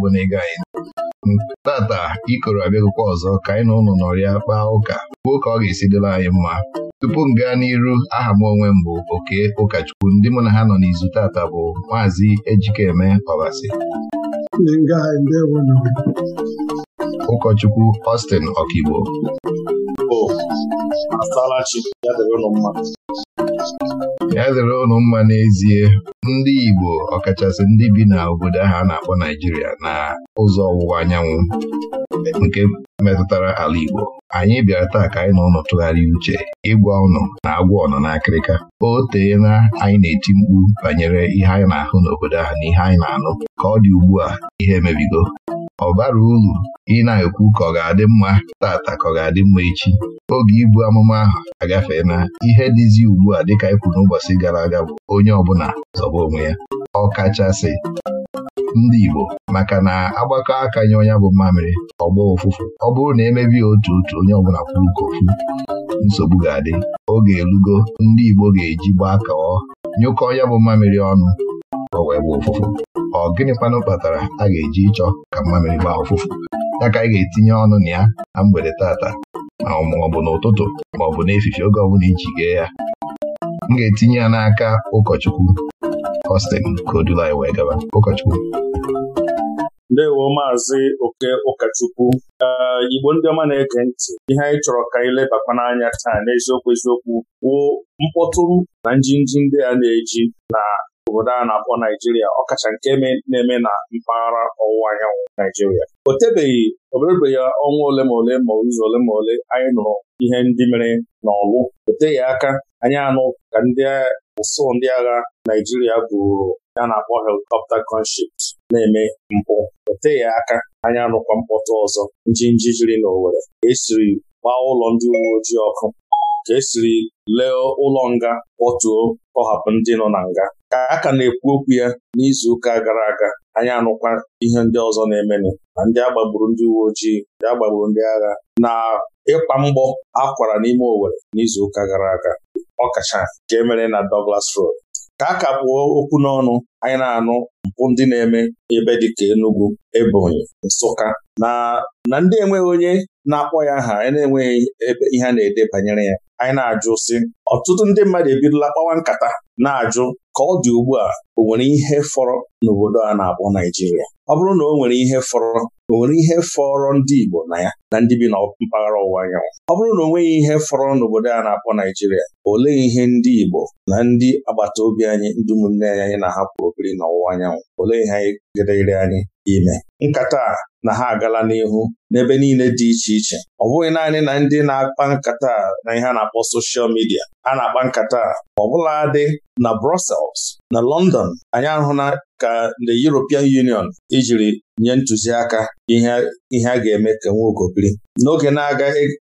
Igbo na-ege anyị tata ikoro abịakwụkwọ ọzọ ka anyị na ụnụ nọrịa kpaa ụka kwuo ka ọ ga-esi dịla anyị mma tupu m gaa n'iru aha m onwe m bụ oke ụkọchukwu ndị mụ na ha nọ n'izu tata bụ maazị Ejikeme Ọbasi ụkọchukwu Austin Ọkigbo ya dịrị ụnụ mma n'ezie ndị Igbo ọkachasị ndị bi n'obodo ahụ a na-akpọ Naijiria na ụzọ ọwụwa anyanwụ nke metụtara ala Igbo anyị bịara taa ka anyị na ụnụ tụgharịa uche ịgwa ụnụ na agwọ ọnọ akịrịka. o tee na anyị na-eti mkpu banyere ihe anyị na-ahụ n'obodo ahụ na ihe anyị na-anụ ka ọ dị ugbu a ihe emebigo ọ bara uru ị na-ekwu ka ọ ga-adị mma tata ka ọ ga-adị mma echi oge ibu amụma ahụ agafe na ihe dịzi ugbu a dịka ikwu n'ụbọchị gara aga bụ onye ọbụla zọba onwe ya ọkachasị ndị Igbo maka na agbakọ aka nye onye bụ mmamịrị ọgbọ ụfụfụ ọ bụrụ na emebi otu otu onye ọbụla kwuru ka ofu nsogbu ga-adị oge elugo ndị Igbo ga-eji gbaa ka ọ nyụkọ ya bụ mmamịrị ọnụ ọ wee gba ụfụfụ ọ gịnịkwanụ kpatara a ga-eji ịchọ ka mmamịrị gbaa ụfụfụ ya ka anyị ga-etinye ọnụ na ya na mgbede tata ma ọ bụ n'ụtụtụ ma ọ bụ n'efifie oge ọbụla iji gee ya m ga-etinye ya n'aka ụkọchukwu Austin ka wee gaba ụkọchukwu ndewo maazị oke ụkọchukwu igbo ndị ọma na-ege ntị ihe anyị chọrọ ka anyị lebakwa n'anya taa n'eziokwu eziokwu wụ mkpọtụrụ na njinji ndị a na-eji na obodo a na-akpọ Naijiria ọkacha nke na-eme na mpaghara ọwụwa anyanwụ Naijiria o tebeghị oberebeghị ọnwa ole ma ole ma ụzọ ole ma ole anyị nụrụ ihe ndị mere n'ọlụ oteghị aka anya anụ ka ndị ụsụ ndị agha Naijiria bụrụ ya na-akpọ helikọpta gunships na-eme mpụ oteghị aka anya anụkwa mkpọtụ ọzọ njinji jiri n'Owere ka esiri gbaa ụlọ ndị uwe ojii ọkụ ka esiri lee ụlọ nga kpọtuo kpọhapụ ndị nọ na nga ka a ka na-ekwu okwu ya ụka gara aga anyị anụkwa ihe ndị ọzọ na-emenụ na ndị agbagburu ndị uwe ojii ndị agbagburu ndị agha na ịkpa mbọ akwara n'ime Owerri n'izuụka gara aga ọkacha nke emere na Douglas Road ka a ka kpụọ okwu n'ọnụ anyị na-anụ mpụ ndị na-eme ebe dị ka Enugu Ebonyi Nsụka na ndị enweghị onye na-akpọ ya aha anyị e na-enweghị ebe ihe a na-ede banyere ya anyị na-ajụ sị ọtụtụ ndị mmadụ ebidola kpawa nkata na-ajụ ka ọ dị ugbu a o nwere ihe fọrọ n'obodo a na-akpọ Naijiria ọ bụrụ na o nwere ihe fọrọ o nwere ihe fọrọ ndị Igbo na ya na ndị bi na mpaghara ọwụwa anyanwụ ọ bụrụ na o nweghị ihe fọrọ n'obodo a na-akpọ Naijiria olee ihe ndị Igbo na ndị agbata obi anyị ndị ụmụnne anyị anyị na-ahapụrụ obiri na ọwụwa anyanwụ olee ihe anyị gịrịrị anyị ime nkata na ha agala n'ihu n'ebe niile dị iche iche ọ bụghị naanị na ndị na-akpa nkata na ihe a na-akpọ soshal midia a na-akpa nkata ma ọ bụla dị na Brussels na London anyị ahụla ka the European Union ijiri nye ntụziaka ihe a ga-eme ka Nwoko biri n'oge na-aga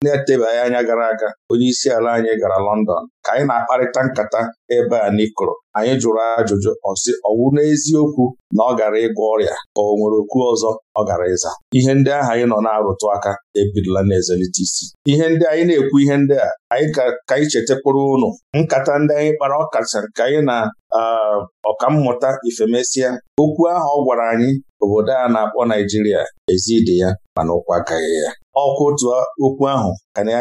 na-etebeghị anya gara aga onye isi ala anyị gara London ka anyị na-akparịta nkata ebe a n'ikoro anyị jụrụ ajụjụ ọsị ọwụ n'eziokwu na ọ gara ịgwọ ọrịa ka ọ nwere okwu ọzọ ọ gara ịza ihe ndị ahụ anyị nọ na-arụtụ aka ebidola na-ezelite isi ihe ndị anyị na-ekwu ihe ndị a anyị ka anyị chetakpụrụ ụnụ nkata ndị anyị kpara ọkacha ka anyị na ọkammụta ifemesia okwu ahụ ọ gwara anyị obodo a na-akpọ Naijiria ezi dị ya mana ụkwụ agaghị ya ọkụ ọkwụtụ okwu ahụ ka na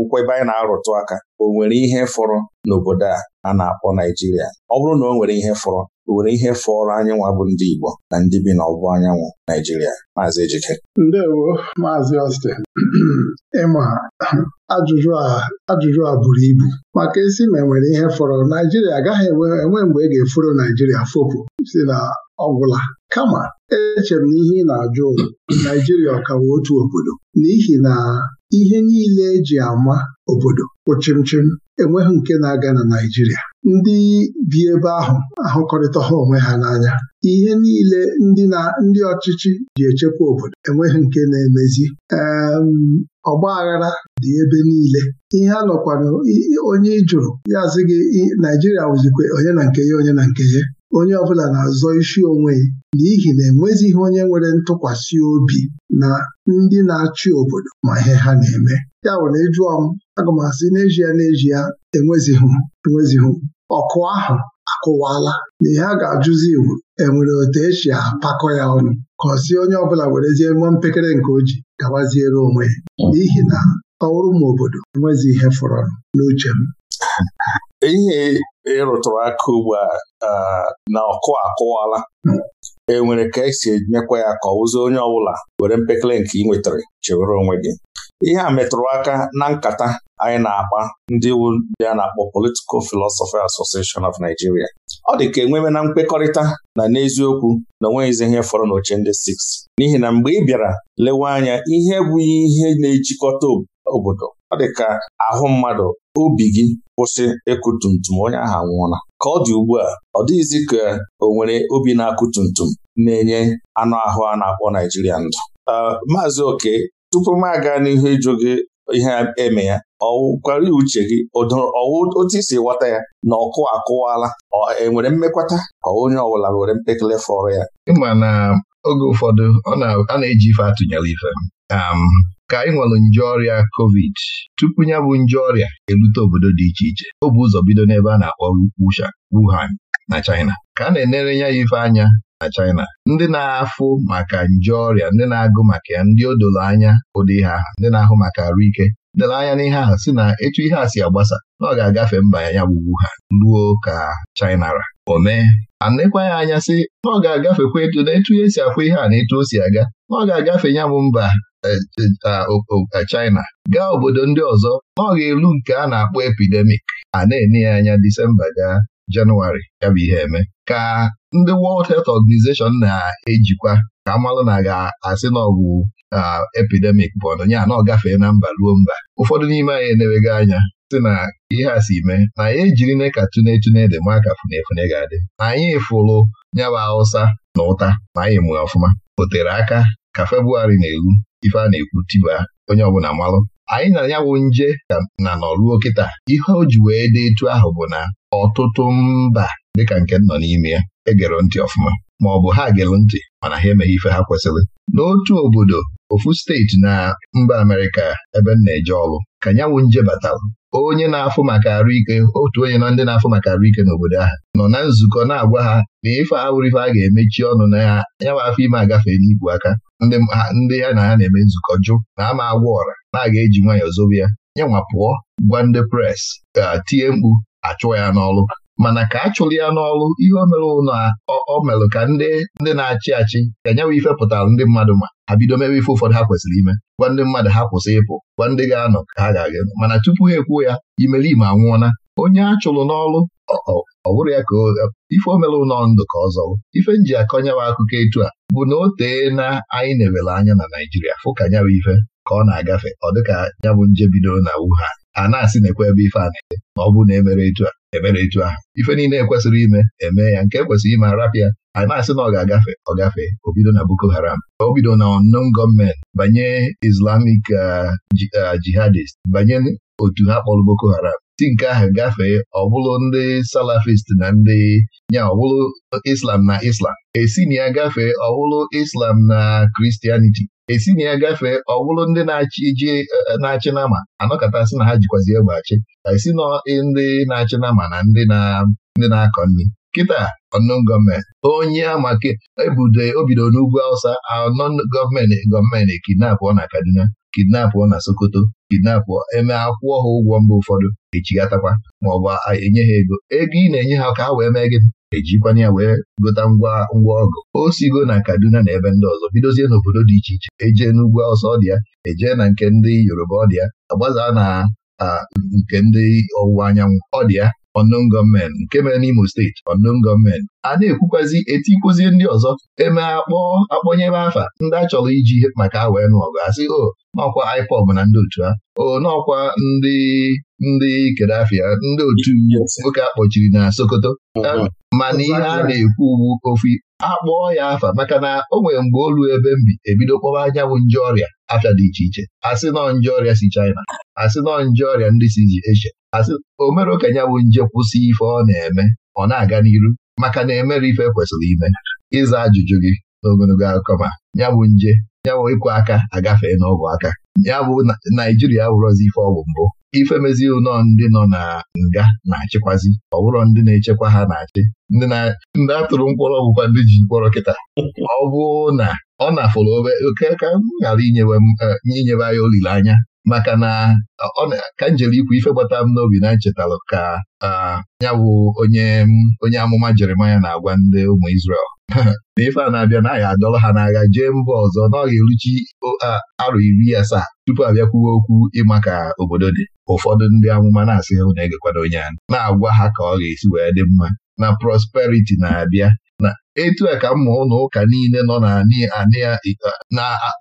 ụkwụ ebe anyị na-arụtụ aka o nwere ihe fọrọ n'obodo a a na-akpọ Naijiria ọ bụrụ na o nwere ihe fọrọ o nwere ihe fọrọ anyị nwa bụ ndị Igbo na ndị bi n'ọbụ anyanwụ Naijiria Maazị Ejike Ndewo Maazị Austin ịma ajụjụ a ajụjụ a buru ibu maka esi ma enwere ihe fọrọ Naijiria agaghị enwe mgbe e ga-efuru Naijiria fopu si na ọbụla kama echere m na ihe ị na-ajụ Naijiria ọkawa otu obodo n'ihi na ihe niile eji ama obodo bụ chim enweghị nke na-aga na Naijiria ndị bi ebe ahụ ahụkọrịta ha onwe ha n'anya ihe niile ndị na ndị ọchịchị ji echekwa obodo enweghị nke na-emezi ọgba aghara dị ebe niile ihe anọkwana onye ị ya sị gị Naijiria wụzikwa onye na nke ya onye na nke ya onye ọbụla na-azọ isi onwe n'ihi na enwezighị onye nwere ntụkwasị obi na ndị na-achị obodo ma ihe ha na-eme ya were jụọ m aga m asị n'ezie n'ezie enwezighị m m ọkụ ahụ akụwala. na ihe a ga-ajụzi iwu enwere otu esi apakọ ya ọnụ ka ọ si onye ọbụla werezie nwa mpekere nke o ji gawaziere onwe ya n'ihi na ọwụrụ m obodo enwezi ihe fọrọnụ n'uche m ihe ịrụtụrụ aka ugbu a na ọkụ akụwala e nwere ka esi emekwa ya ka ọ wụzie onye ọbụla were mpekele nke ị nwetara chewere onwe gị ihe a metụrụ aka na nkata anyị na-akpa ndị iwu ndị a na-akpọ Political Philosophy Association of Nigeria ọ dị ka enweme na mkpekọrịta na n'eziokwu na onweghịzi ihe fọrọ n'oche ndị six n'ihi na mgbe ị bịara lewe anya ihe bụ ihe na-ejikọta obodo ọ dị ka ahụ mmadụ obi gị kwụsị ịkụ tum onye ahụ anwụọla ka ọ dị ugbu a ọ dịghịzi ka o nwere obi na-akụ tum na-enye anụ ahụ a na-akpọ Naijiria ndụ maazị Oke tupu m aga n'ihu ịjụ gị ihe eme ya ọwụkwara uche gị ọwụ otu isi ghọta ya na ọkụ akụwaala enwere mmekwata ka onye ọbụla nwere mpekele fọrọ ya ịma na oge ụfọdụ ọ na-eji ife atụnyere ife ka anyị nwere nje ọrịa covid tupu ya bụ nje ọrịa elute obodo dị iche iche o bụ ụzọ bido n'ebe a na-akpọ Wuhan na China ka a na-enere ya ife anya na China ndị na-afụ maka nje ọrịa ndị na-agụ maka ya ndị odolo anya ụdị aha, ndị na-ahụ maka arụike lere anya n'ihe a si na etu ihe a si agbasa na ọ ga-agafe mba ya gbugbu ha ruo ka China ra o anekwa ya anya sị na ọ ga-agafekwa etu na etu esi akwa ihe a na etu o si aga na ọ ga-agafe ya bụ mba e, e, China gaa obodo ndị ọzọ ọ ga-elu nke a na-akpọ epidemic a na-enye ya anya Disemba gaa Jenụwarị ya bụ ihe eme ka ndị World Health Organization na-ejikwa ka amalụ na ga-asị na ọgwụ epidemik bụ ọnụ Nye na ọ gafee na mba ruo mba ụfọdụ n'ime anyị enewego anya sị na ihe a si mee na anyị ejiri ka tunetune dị ma ka funefune ga-adị na anyị fụrụ nyaba Hausa na ụta na anyị mụrụ ọfụma o tere aka ka Febụwarị na-eru ife a na-ekwu tiba onye ọbụla malụ anyị na ya nje na nọruo kịta ihe o ji wee dị etu ahụ bụ na ọtụtụ mba dịka nke nọ n'ime ya egere ntị ọfụma ma ọ bụ ha gere ntị mana ha emeghị ife ha kwesịrị n'otu obodo ofu steeti na mba Amerịka ebe m na-eje ọrụ ka nyanwụ nje batara onye na-afụ maka arụike otu onye na ndị na-afụ maka arụike n'obodo ahụ nọ na nzukọ na-agwa ha na ife awụrụ a ga-emechi ọnụ na ya nyawa afọ ime agafe n'igwu aka ndị ya na ha na-eme nzukọ jụ na ama agwa ọra na-aga eji nwayọọ zobe ya nyanwa pụọ gwa ndị pres ka tie mkpu achụọ ya n'ọrụ mana ka a chụrụ ya n'ọlụ ihe o na ọ merụ ka ndị ndị na-achị achị ka ife pụtara ndị mmadụ ma ha bido mere ife ụfọdụ ha kwesịrị ime gwa ndị mmadụ ha kwụsị ịpụ gwa ndị ga-anọ ka ha ga-aga mana tupu ha ekwuo ya imere ime anwụọna onye a chụrụ n'ọlụ ọ bụrụ ya ka ife o merụ nọ ndụ ka ọ ife nji akọnyawa akụkọ etu a bụ na o tee na anyị na-ewere anya na Naijiria fụ ka nyawa ife ka ọ na-agafe ọ dịka ya bụ nje bido na Wuhan a na-asị na-ekwe ebe ife a na ma ọ bụrụ na emere etu a emere etu ahụ ife niile ekwesịrị ime eme ya nke ekwesịrị ime arapịa a na-asị na ọ ga-agafe ọ gafe bido na Boko Haram o bido na ọnụnọ gọọmenti banye Islamic uh, uh, jihadist banye otu ha kpọrọ Boko Haram si nke ahụ gafee ọ ndị salafist na ndị ya ọ Islam na Islam esi na ya gafee ọ Islam na kristianiti esi na ya gafee ọ ndị na-achị ji eh, na-achị nama anọkọta sị na ha jikwazi egbe achị esi na ndị na-achị nama na ndị na-akọ nri kịta ọnụ gọọmenti onye amake ebudo o bido n'ugwu awụsa anọ gọọmenti gọọmenti kidnapụ na Kaduna kidnapụ na Sokoto kidnapụ eme akwụọ ha ụgwọ mba ụfọdụ echighatakwa maọbụ enye ha ego ego ị na-enye ha ka ha wee mee gịnị ejikwana ya wee gota ngwa ngwa ọgụ o sigo na Kaduna na ebe ndị ọzọ bidozie n'obodo dị iche iche eje n'ugwu ọsọ ọ dị ejee na nke ndị Yoruba ọ dị agbazaa na nke ndị ọwụwa anyanwụ ọ unknown gọọmenti nke mere n'Imo steeti unknown gọọmenti a na-ekwukwazi ịkwụzie ndị ọzọ eme akpọ akpọnyebe afa ndị a chọrọ iji maka ha wee nụ ọgụ asị o n'ọkwa IPOB na ndị otu ha o oh, n'ọkwa ndị ndị kedafia ndị otu nwoke akpọchiri na Sokoto mana ihe a na-ekwu ugbu ofe akpọọ ya afa maka na o nwere mgbe olu ebe mbi ebido kpọwa anyanwụ nje ọrịa afịa dị iche iche asị nọ nje ọrịa si China asị nọ nje ọrịa ndị si Asia asị o mere ka bụ nje kwụsị ife ọ na-eme ọ na-aga n'iru maka na emere ife e kwesịrị ime ịza ajụjụ gị n'ogologo akụkọ ma ya bụ nje ya ịkụ ịkwụ aka agafee n'ọgwụ aka ya bụ Naijiria wụrọzi ife ọgwụ mbụ ife mezi ụlọ ndị nọ na nga na-achịkwazi ọ bụrụ ndị na-echekwa ha na-achị ndị na tụrụ mkpọrọ ọgwụkwa ndị ji mkpọrọ kịta ọ bụ na ọ na-afụrụ oke ka m ghara ya olile eh, olileanya maka na ka njere ikwu ife gbata m n'obi na nchetalụ ka ya bụ onye onye amụma Jeremaya na-agwa ndị ụmụ Izrel na ife a na-abịa na agha adọrọ ha n'agha jee mba ọzọ na ọ ga-eruchi arọ iri asaa tupu abịakwuwe okwu ịma ka obodo dị ụfọdụ ndị amụma na-asị ha na-egekwana onye a na-agwa ha ka ọ ga-esi wee dị mma na prosperiti na-abịa na etu a ka mma ụlọ ụka niile nọ na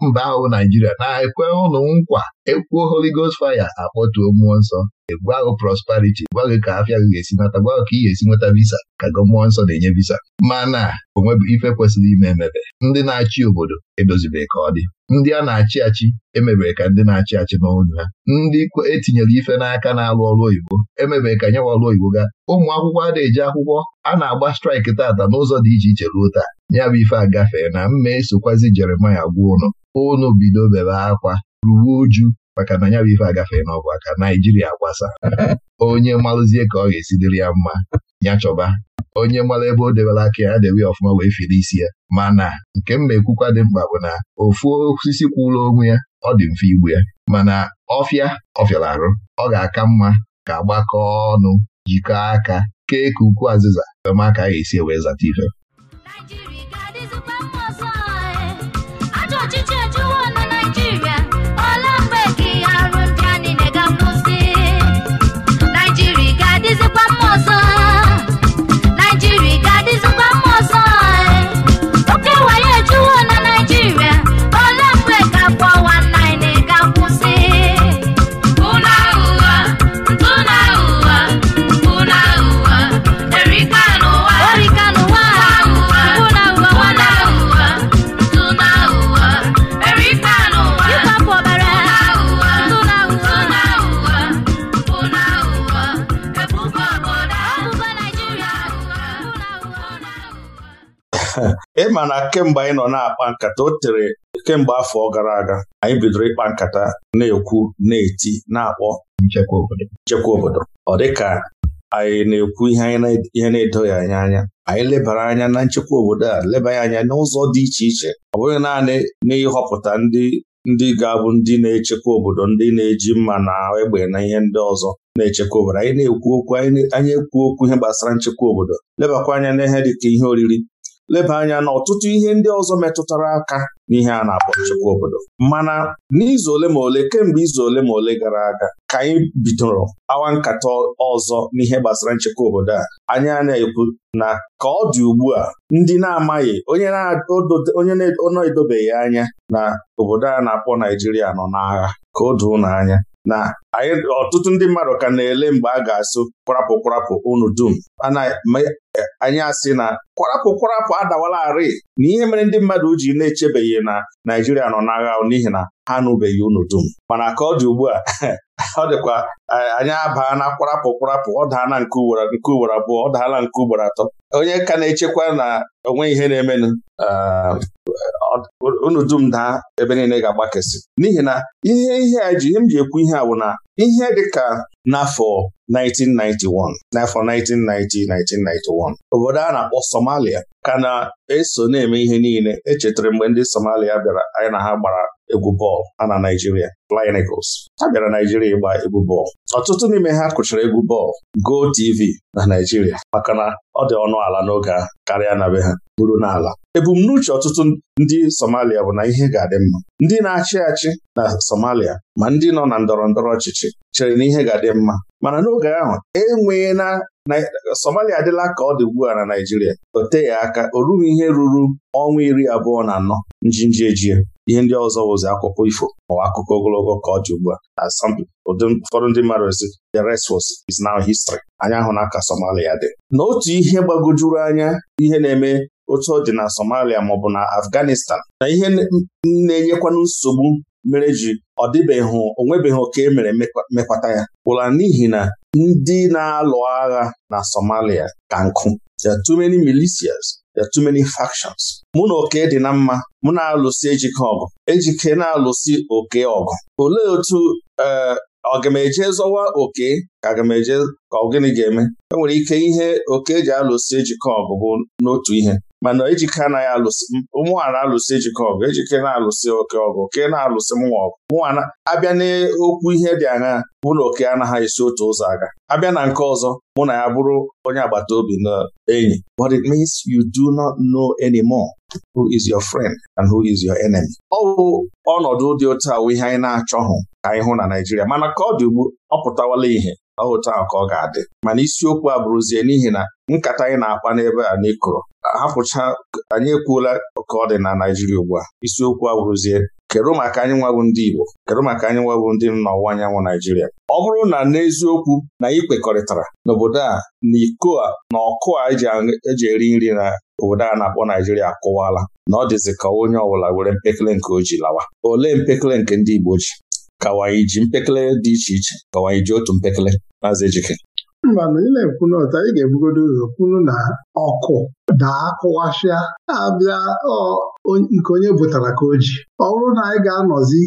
mba ahụ Naijiria na-ekwe ụlọ nkwa ekwuo Holy gost fire akpọtuo mmụọ nsọ egwu ahụ prosperity gwa gị ka afịa gị ga-esi nata gwa gị ka ị ga-esi nweta visa ka gị mmụọ nsọ na-enye visa mana onwebụ ife kwesịrị ime emebe ndị na-achị obodo edozibere ka ọ dị ndị a na-achị achị emebere ka ndị na-achị achị n'ọnụ ha ndị etinyere e ife n'aka na-alụ ọrụ oyibo emebere ka nyewa ọrụ oyibo ga ụmụ akwụkwọ a na-eji akwụkwọ a na-agba straịkị tata n'ụzọ dị iche iche ruo taa ya bụ ife agafee na mma esokwazi Jeremaya gwa ụnụ ụnụ bido bebe akwa ruwe uju maka na ya bụ ife agafee n'ọbụ aka Naijiria gbasa onye malụzie ka ọ ga-esi dịrị ya mma ya chọba onye mmalụ ebe o debere aka ya dewe ya ọfụma wee fere isi ya mana nke m na-ekwukwa dị mkpa bụ na ofu osisi kwụrụ onwe ya ọ dị mfe igbu ya mana ọfịa ọfịara arụ ọ ga-aka mma ka agbakọ ọnụ jikọọ aka kee ka ukwu azịza femaka a ga-esi wee zata ife ma na kemgbe anyị nọ na-akpa nkata o tere kemgbe afọ gara aga anyị bidoro ịkpa nkata na-ekwu na-eti na-akpọ nchekwa obodo ọ dịka anyị na-ekwu ihe na-edoghị anyị anya anyị lebara anya na nchekwa obodo a lebanye anya n'ụzọ dị iche iche ọ bụghị naanị n'ịhọpụta ndị ndị ga-abụ ndị na-echekwa obodo ndị na-eji mma na egbe na ihe ndị ọzọ na-echekwa obodo anyị na-ekwu okwu anyị ekwu okwu ihe gbasara nchekwa obodo lebakwa anya na dị ka ihe oriri leba anya na ọtụtụ ihe ndị ọzọ metụtara aka n'ihe a na-akpọ nchekwa obodo mana n'izu ole ma ole kemgbe izu ole ma ole gara aga ka anyị bidoro awa nkata ọzọ n'ihe gbasara nchekwa obodo a anyị na-ekwu na ka ọ dị ugbu a ndị na-amaghị onye na-edobeghị anya na obodo a na-akpọ Naijiria nọ n'agha ka o doo n'anya na anyị ọtụtụ ndị mmadụ ka na-ele mgbe a ga-asụ kwarapụ kwarapụ unu dum anyị asị na kwarapụ kwarapụ arị na ihe mere ndị mmadụ ji na-echebeghị na Naijiria nọ n'agha n'ihi na ha anụbeghị unu dum mana ka ọ dị ugbu a ọ dịkwa anyị abaa na kwarapụ kwarapụ ọ daala nke ugboro nke ugboro abụọ ọ daala nke ugboro atọ onye ka na-echekwa na onwe ihe na-emenụ uh, unu dum daa ebe niile ga-agbakesị n'ihi na ihe ihe a ji m ji ekwu ihe a bụ na ihe dịka n'afọ 1991 n'afọ 1990 1991 obodo a na-akpọ Somalia ka na-eso na-eme ihe niile echetara mgbe ndị Somalia bịara anyị na ha gbara egwu bọọlụ ha na Naijiria Lion ha bịara Naijiria ịgba egwu bọọlụ ọtụtụ n'ime ha kụchara egwu bọọlụ Go TV na Naijiria maka na ọ dị ọnụ ala n'oge a karịa na be ha buru n'ala ebumnuche ọtụtụ ndị Somalia Somalia bụ na ihe ga-adị mma ndị na-achị achị na Somalia ma ndị nọ na ndọrọ ndọrọ ọchịchị chere na ihe ga-adị mma mana n'oge ahụ enweghị na Somalia adịla ka ọ dị ugbu a na Naijiria o tee aka o rughị ihe ruru ọnwa iri abụọ na anọ njinji ejie ihe ndị ọzọ wụzi akwụkwọ ifo ma akụkọ ogologo ka ọ dị ugbu a ụdị ụfọdụ ndị mmadụ si the rest was is now history anya ahụ na aka Somalia dị n'otu ihe gbagojuru anya ihe na-eme otu ọ dị na Somalia maọbụ na Afghanistan na ihe na-enyekwanụ nsogbu mere ji ọ dịbeghị onwebeghị oke emere mekwata ya wụla n'ihi na ndị na-alụ agha na Somalia ka nkụ there too many militias too many factions mụ na oke dị na mma mụ na-alụsi ejike ọgụ ejike na-alụsi oke ọgụ olee otu eh, ọ ga m eje zọwa oke ka ga m eje ka ọ gịnị ga-eme Enwere ike ihe oke eji alụsi ejike ọgụ bụ n'otu ihe mana ejike anaghị alụsị ụmụnwa na-alụsị ejike ọgụ ejike na-alụsị oke ọgụ ke na-alụsị nwa ọgụ nwa abịa n'okwu ihe dị aṅa ụlọ oke anaghị esi otu ụzọ aga abịa na nke ọzọ mụ na ya bụrụ onye agbata obi na enyi but it means you do not know anymore who is your friend and who is your enemy. ọ bụ ọnọdụ dị otu ahụ ihe anyị na achọ ka anyị hụ na Naijiria mana ka ọ dị ugbu ọ pụtawala ihe ọ ahụ ka ọ ga-adị mana isiokwu a bụrụzie n'ihi na nkata anyị na-akpa n'ebe a n'ikoro ahapụcha anyị ekwuola ka ọ dị na Naijiria ugbu a isiokwu abụrụzie kedu maka anyị nwabụ ndị Igbo kedu maka anyị nwabụ ndị n'ọwụwa anyanwụ Naijiria ọ bụrụ na n'eziokwu na anyị kpekọrịtara. n'obodo a na iko a na ọkụ a eji eri nri na obodo a na-akpọ Naijiria akụwala na ọ dịzị ka onye ọbụla were mpekele nke o ji lawa olee mpekele nke ndị Igbo ji ji mpekele dị iche iche ji otu mpekele Maazị Ejike mana ị na-ekwu n'ọta anyị ga-ebugodo ụzọ kwunu na ọkụ daa kụwashịa abịa nke onye bụtara ka o ji ọ bụrụ na anyị ga-anọzi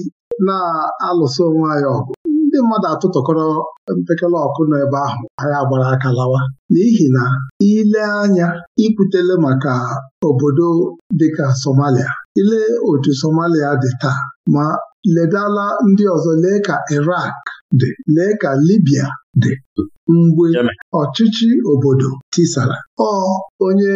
na-alụso onwe anyị ọgụ ndị mmadụ atụtụkọrọ mpekele ọkụ nọ ebe ahụ anyị agbara aka lawa n'ihi na ile anya ikwutele maka obodo dịka Somalia ile otu Somalia dị taa ma ledala ndị ọzọ lee ka Iraq dị lee ka Libya dị mgbe ọchịchị obodo tisara ọ onye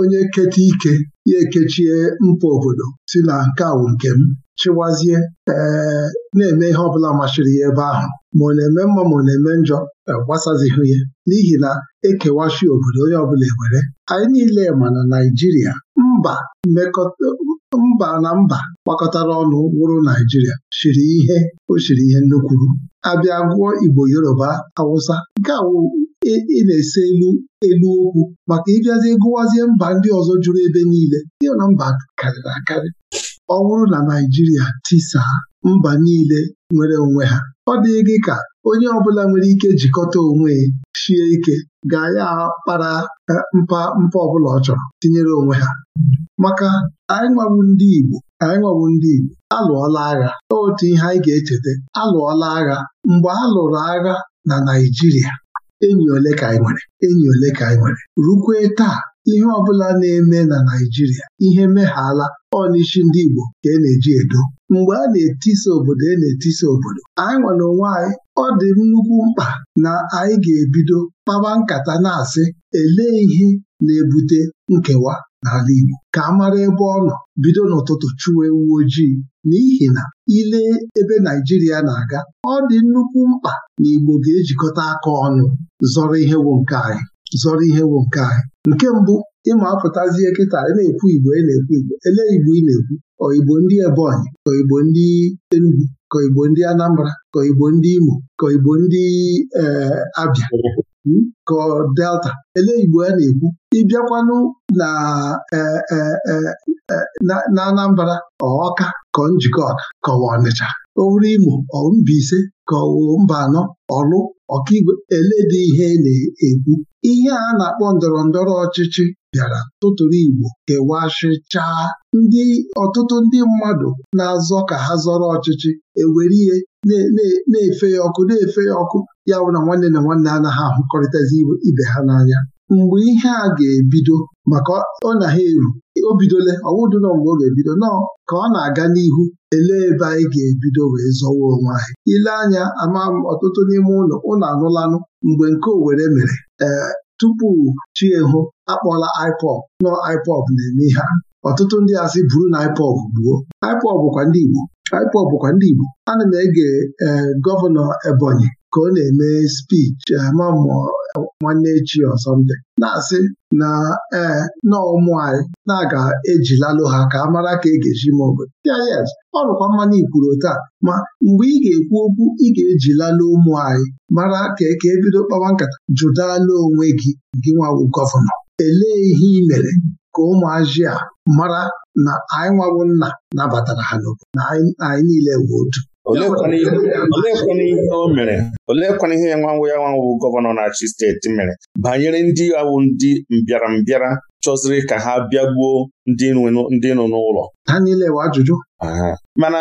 onye keta ike ya ekechie mpụ obodo si na nke awụ nke m chịwazie ee eh, na-eme ihe ọbụla machiri ya ebe ahụ ma ọ na-eme mma ma ọ na-eme njọ eh, gbasazighị ya n'ihi na ekewachi obodo onye ọbụla ewere anyị niile ma na Naijiria mba mmekọta mba na mba gbakọtara ọnụ wụrụ Naijiria shiri ihe o shiri ihe nnukwuru abịa gụọ Igbo Yoruba Hausa nke awụ ị e, e na-ese elu elu okwu maka ịbịazie gụwazie mba ndị ọzọ juru ebe niile ya na mba karịrị akarị ọ bụrụ na Naijiria tisa mba niile nwere onwe ha ọ dịghị gị ka onye ọbụla bụla nwere ike jikọta onwe shie ike ga ya kpara eh, mpa mpa ọbụla ọ chọrọ tinyere onwe ha maka anyị nwabu ndị Igbo anyị nwabu ndị Igbo alụọla agha otu ihe anyị ga-echeta alụọla agha mgbe a lụrụ agha na Naijiria, enyi ole ka anyị nwere enyi ole ka anyị nwere rukwee taa ihe ọ bụla na-eme na Naijiria ihe meghala ọ ndị Igbo ka e na-eji edo mgbe a na-etisa obodo e na-etisa obodo anyị nwere onwe anyị ọ dị nnukwu mkpa na anyị ga-ebido kpawa nkata na-asị elee ihe na-ebute nkewa n'ala Igbo ka a mara ebe ọ nọ bido n'ụtụtụ chụwa ewu ojii n'ihi na ile ebe Naijiria na-aga ọ dị nnukwu mkpa na Igbo ga-ejikọta aka ọnụ zọrọ ihe nke anyị zọrọ ihe nke anyị nke mbụ ịma apụtazie kịta ị na-ekwu Igbo ị na-ekwu Igbo ele Igbo ị na-ekwu ọ ndị Ebonyi ka ndị Enugwu, ka ndị Anambra ka ndị Imo ka ndị eh, Abịa hmm? ka Delta ele Igbo a na-ekwu ịbịakwanụ eh, eh, na Anambra ọka ka njikọ ọka kọwa Ọnịcha o Imo ọ Mbaise ka mba anọ ọlụ ọkaigwe ele dị ihe na-ekwu ihe a na-akpọ ndọrọ ndọrọ ọchịchị bịara tụtụrụ Igbo kewachichaa ndị ọtụtụ ndị mmadụ na-azọ ka ha zọrọ ọchịchị ewere ihe na-efe ya ọkụ na-efe ya ọkụ ya bụ na nwanne na nwanne anaghị ahụkọrịtazi ibe ha n'anya mgbe ihe a ga-ebido maka ọ na ha eru o bidola ọwụdụ nọ mgbe ọ ga-ebido nọ ka ọ na-aga n'ihu elee ebe anyị ga-ebido wee zọwa onwe anyị ile anya ama m ọtụtụ n'ime ụlọ ụlọ anụlanụ mgbe nke Owere mere tupu chi hụ akpọla ipop nọ ipop na-eme ha ọtụtụ ndị asị buru na IPOB gbuo IPOB bụkwa ndị Igbo IPOB bụkwa ndị Igbo ana m ege eh, gọvanọ Ebonyi ka ọ na-eme spichi ama eh, mmụọ eh, nwanne chi ọzọmde na-asị na ee eh, nọọ ụmụ anyị na-aga ejilalụ ha ka a mara ka e ga-eji ma obodo ya yes ọ rụkwa mmanụ ikwuru taa ma mgbe ị ga-ekwu okwu ị ga-ejilalụ ụmụ anyị mara ka eke ebido kpawa nkata jụdalụ onwe gị gị nwawu gọvanọ elee ihe ị mere ka ụmụazi a mara na anyị nwawo nna nabatara ha n'obodo na anyị niile wụ otu olekwana ihe o mere ihe ya nwanwụ ya nwa gọvanọ na-achị steeti mere banyere ndị awụ ndị mbịarambịara chọziri ka ha bịa gbuo ndị nọ n'ụlọ ha niile ajụjụ mana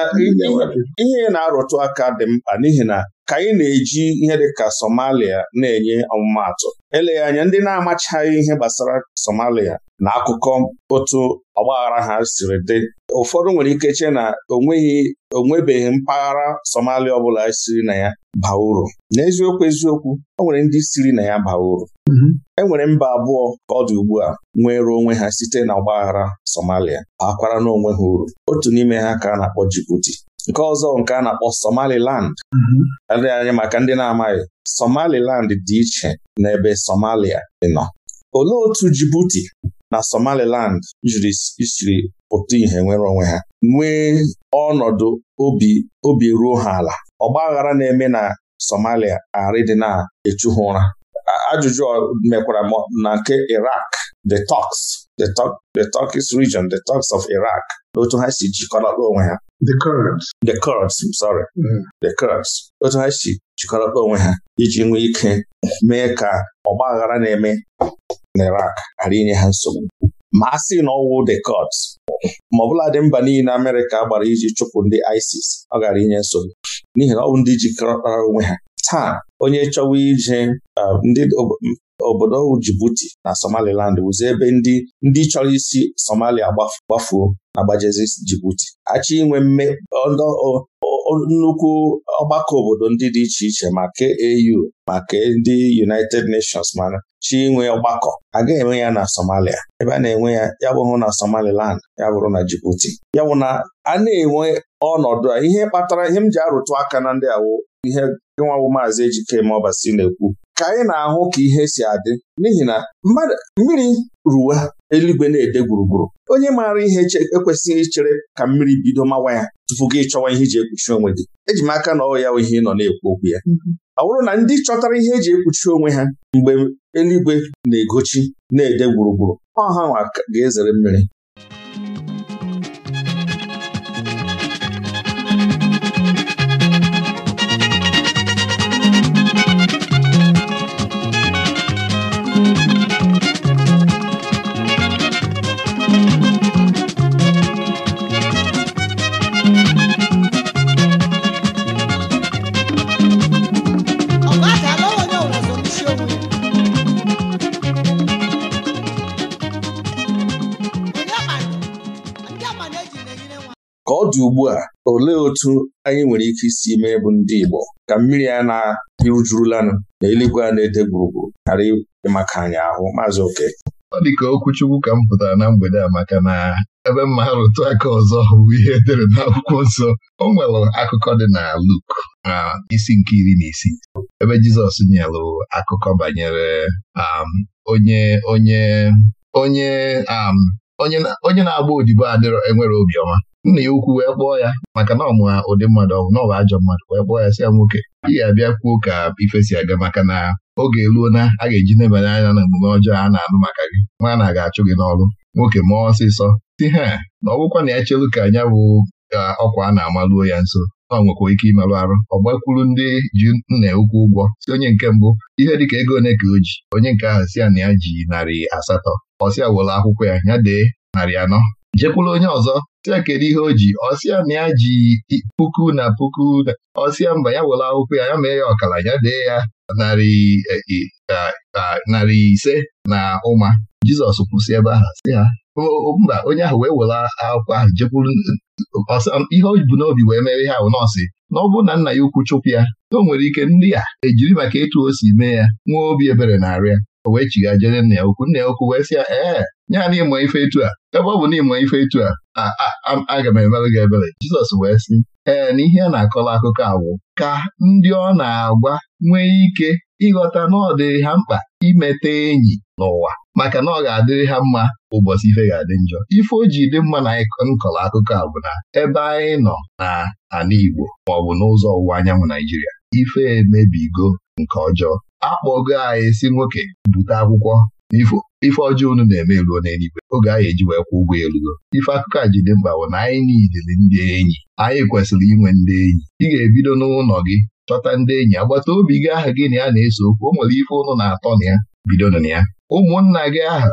ihe na-arụtụ aka dị mkpa n'ihi na ka anyị na-eji ihe dị ka Somalia na-enye ọmụmaatụ eleghị anya ndị na-amachaghị ihe gbasara Somalia na akụkọ otu ọgbaghara ha siri dị ụfọdụ nwere ike chee na onweghị onwebeghị mpaghara Somalia ọbụla siri na ya baa uru n'eziokwu eziokwu o nwere ndị siri na ya baa uru mm-hmm. e nwere mba abụọ ka ọ dị ugbu a nwere onwe ha site na ọgbaghara Somalia akwara n'onwe ha uru otu n'ime ha ka a na-akpọ Djibouti nke ọzọ nke a na-akpọ Somaliland mm-hmm. adịghị anya maka ndị na-amaghị Somaliland dị iche n'ebe Somalia dị nọ olee otu Djibouti na Somaliland jiri isiri pụta ihe nwere onwe ha nwee ọnọdụ obi obi ruo ha ala ọgba na-eme na Somalia dị na-echu ha ụra ajụjụ mekwara m na nke Iraq the Turks the Turk the Turkish region the Turks of Iraq otu ha si jikọrọta onwe ha the Kurds sorry mm. the Kurds otu ha si jikọrọta onwe ha iji nwee ike mee ka ọgba na-eme na Iraq ghara inye ha nsogbu ma a sị na ọwụ dekọt ma dị mba niile Amerịka gbara iji chụpụ ndị ISIS ọ gara inye nsogbu n'ihi na ọ bụ ndị jikọtara onwe ha taa onye chọwa ije ndị obodo jibuti na Somaliland wụzi ebe ndị ndị chọrọ isi Somalia gbafuo na gbajezi Djibouti achọ inwe nnukwu ọgbakọ obodo ndị dị iche iche ma KAU ma ke ndị United Nations ma chi inwe ọgbakọ agaghị enwe ya na Somalia ebe a na-enwe ya ya bụghụ na Somaliland ya bụrụ na Djibouti ya bụ na a na-enwe ọnọdụ a ihe kpatara ihe m ji arụtụ aka na ndị awo ihe nwawo maazị Ejike ma na-ekwu ka anyị na-ahụ ka ihe si adị n'ihi na mmadụ mmiri ruwa eluigwe na-ede gburugburu onye maara ihe ekwesịghị ichere ka mmiri bido mawa ya tupu gị chọwa ihe iji ekpuchi onwe gị eji m aka na ọ ya ihe ị nọ na-ekwu okwu ya mhm. ọ bụrụ na ndị chọtara ihe eji ekpuchi onwe ha mgbe eluigwe na-egochi na-ede gburugburu ọha nwa ga-ezere mmiri ka ọ dị ugbu a olee otu anyị nwere ike isi mee bụ ndị Igbo ka mmiri a na-irujurulanụ na eluigwe a na-ede gburugburu ghara ịmaka anyị ahụ maazị oke ọ dị ka okwuchukwu ka m pụtara na mgbede a maka na ebe mma rụtụ aka ọzọ bụ ihe edere n'akwụkwọ nsọ o nwere akụkọ dị na Luk na isi nke iri na isii ebe Jizọs nyelụ akụkọ banyere um, onye onye um, onye onye na-agba odibo adịrọ enwere obiọma nna ya ukwu wee kpọọ ya maka na ụdị mmadụ ọ bụ ajọ mmadụ wee kpọọ ya si ya nwoke ị ga-abịa kwuo ka ife si aga maka na oge eruo na a ga-eji nebanye anya na omume ọjọọ a na-anụ maka gị nwa na ga-achụ gị n'ọrụ nwoke ma ọsịsọ si ha na ọgwụkwa na ya chelu ka anya bụ ọkwa a na-amaluo ya nso na ọ nwekwa ike imerụ arụ ọ gbakwuru ndị ji nna ukwu ụgwọ si onye nke mbụ ihe ka ego one ka o ji onye nke ahụ si ya na ya ji narị asatọ ọ sị ya akwụkwọ ya ya dee narị anọ jekwuru onye ọzọ sịa kedu ihe o ji ọsịa na ya ji puku na puku ọsịa mba ya were akwụkwọ ya ya mee ya ọkara ya dee ya narị e, e, ise na ụma Jizọs kwụsị ebe ahụ sị ha mba onye ahụ wee were akwụkwọ ahụ jekwuru ihe o bu n'obi wee mere ihe ahụ nọọsị na ọ bụrụ na nna ya ukwu chụpụ ya na o nwere ike ndị a ejiri maka etu o si mee ya nwee obi ebere na arịa o wee chiga jere nna ya okwu nna ya okwu wee sị ya ee nye na n'ịmụ ife etu a ebe ọ bụ n'ịmụ ife etu a aga m emerụ gị ebere Jizọs wee sị ee n'ihe a na-akọrọ akụkọ awụ ka ndị ọ na-agwa nwee ike ịghọta na ọ dịrị ha mkpa imeta enyi n'ụwa maka na ọ ga-adịrị ha mma ụbọchị ife ga-adị njọ ife o ji dị mma na nkọrọ akụkọ a bụ na ebe anyị nọ na ala Igbo maọbụ n'ụzọ ọwụwa anyanwụ Naijiria ife emebigo nke ọjọọ akpọgo anyị si nwoke bute akwụkwọ n'ifo ife ọjọọ unu na-eme eruo n'eluigwe oge anyị eji wee kwụ ụgwọ elu ife akụkọ a jide mkpa bụ na anyị niile ndị enyi anyị kwesịrị inwe ndị enyi ị ga-ebido n'ụlọ gị chọta ndị enyi agbata obi gị aha gị na ya na-eso okwu o nwere ife ụnụ na-atọ na ya bidonụ na ya ụmụnna gị aha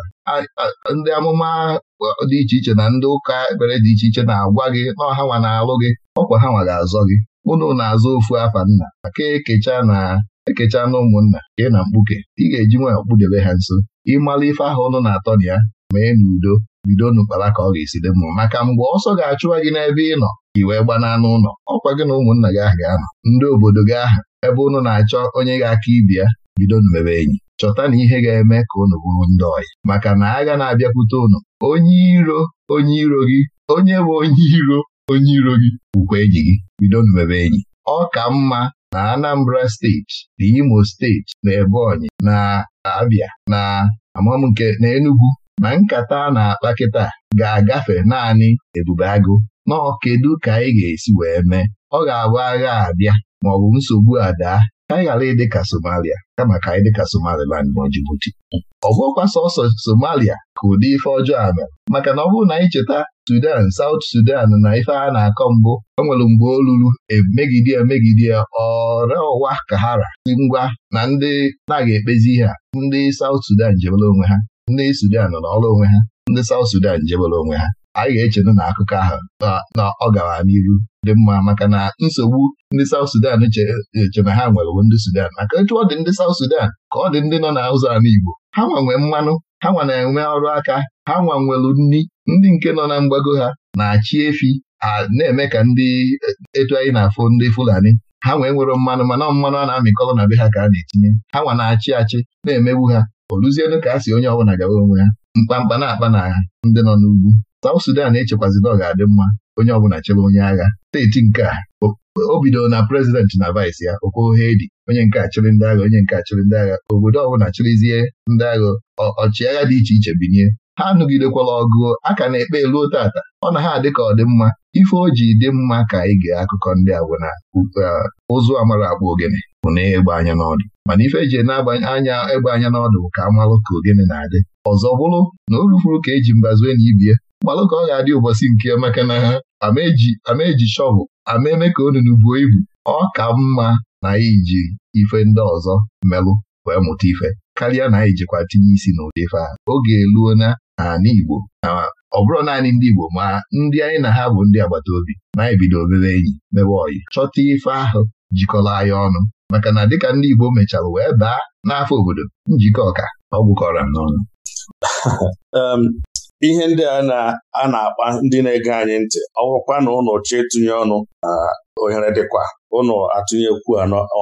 ndị amụma dị iche iche na ndị ụka ekpere dị iche iche na-agwa gị na ọha nwa na-alụ gị ọkwa ha nwa ga-azọ gị ụnụ na-azọ ofu afa nna aka ekecha na ekecha na ụmụnna ka ị na mkpuke ị ga-eji nwayọ kpụdebe ha nso ịmalụ ife ahụ ụnụ na-atọ na ya mee n'udo bido n'ụkpara ka ọ ga-esi dị mma maka mgbe ọsọ ga-achụwa gị n'ebe ị nọ i wee gba n'anụ ụlọ ọkwa gị na ụmụnna gị ahụ ga-anọ ndị obodo gị aha ebe ụnụ na-achọ onye ga-aka ibi ya bido n'mebe enyi chọta na ihe ga-eme ka ụnụ bụrụ ndị ọyị maka na agha na-abịakwute ụnụ onye iro onye iro gị onye bụ onye iro onye iro gị bụkwa enyi gị bido n'mebe enyi ọ ka mma na Anambra steeti na Imo steeti na Ebonyi na Abịa, na amam nke na Enugwu. na nkata na-akpa ga-agafe naanị ebube agụ na kedu ka anyị ga-esi wee mee ọ ga-abụ agha abịa ma ọ bụ nsogbu a daa ka anyị ghara ịdị ka Somalia kama ka anyị dị ka Somaliland ma Jibuti ọ bụkwa sọsọ Somalia ka ụdị ife ọjọọ a maka na ọ bụrụ na anyị cheta Sudan South Sudan na ife a na-akọ mbụ o nwere mgbe o ruru emegide ya megide ya ọra ụwa kahara ngwa na ndị na-aga ekpezi ihe a ndị South Sudan jebere onwe ha ndị Sudan na ọrụ onwe ha ndị South Sudan jebere onwe ha anyị ga-echenụ na akụkọ ahụ na ọ gara n'iru dị mma maka na nsogbu ndị South Sudan eche na e, ha nwere ndị Sudan maka etu ọ dị ndị South Sudan ka ọ dị ndị nọ na ụzọ Igbo ha nwanwe mmanụ ha nwa na-enwe ọrụ aka ha nwa nwelu nri ndị nke nọ na mgbago ha na-achị efi na-eme ka ndị eh, etu anyị na-afụ ndị Fulani ha nwee nwere mmanụ mana mmanụ a na-amịkọrọ na be ha ka a na-etinye ha nwa na-achị achị na-emegbu ha oluzienu ka a si onye ọbụla gawa onwe ha mkpamkpa na-akpa na ndị nọ n'ugwu saụt Sudan echekwazi na ọ ga-adị mma onye ọbụla chebe onye agha steeti nke a o bidoro na prezidenti na vaịs ya edi onye nke achịrị ndị agha onye nke achịrị ndị agha obodo ọbụla chịrịzie ndị agha ọchịagha dị iche iche binye ha anụgidekwala ọgụ a ka na-ekpe eluo tata ọ na ha adị ka ọ dị mma ife o ji dị mma ka anyị gee akụkọ ndị a bụ na uh, ụzụ amara akpụ ogene bụ na egbe anya n'ọdụ mana ife eji anya egbe anya n'ọdụ bụ ka amalụ ka ogene na-adị ọzọ bụrụ na o rufuru ka eji mbazue na ibie malụ ka ọ ga-adị ụbọchị nke maka na ha ama eji shọvel ama eme ka onunu buo ibu ọ ka mma na anyị ji ife ndị ọzọ melụ wee mụta ife karịa na anyị jikwa tinye isi n'ụdị ife oge eluo na n'ala Igbo ọ bụrụ naanị ndị Igbo ma ndị anyị na ha bụ ndị agbata obi na anyị obere enyi mebe ọyị chọta ife ahụ jikọrọ anyị ọnụ maka na dịka ndị Igbo mechara wee baa n'afọ obodo njikọ ọka ọgwụkọrọ m n'ọnụ um, ihe ndị a na-akpa ndị na-ege anyị ntị ọ bụrụkwa na ụnụ chi ọnụ na ohere dịkwa ụnụ atụnyekwu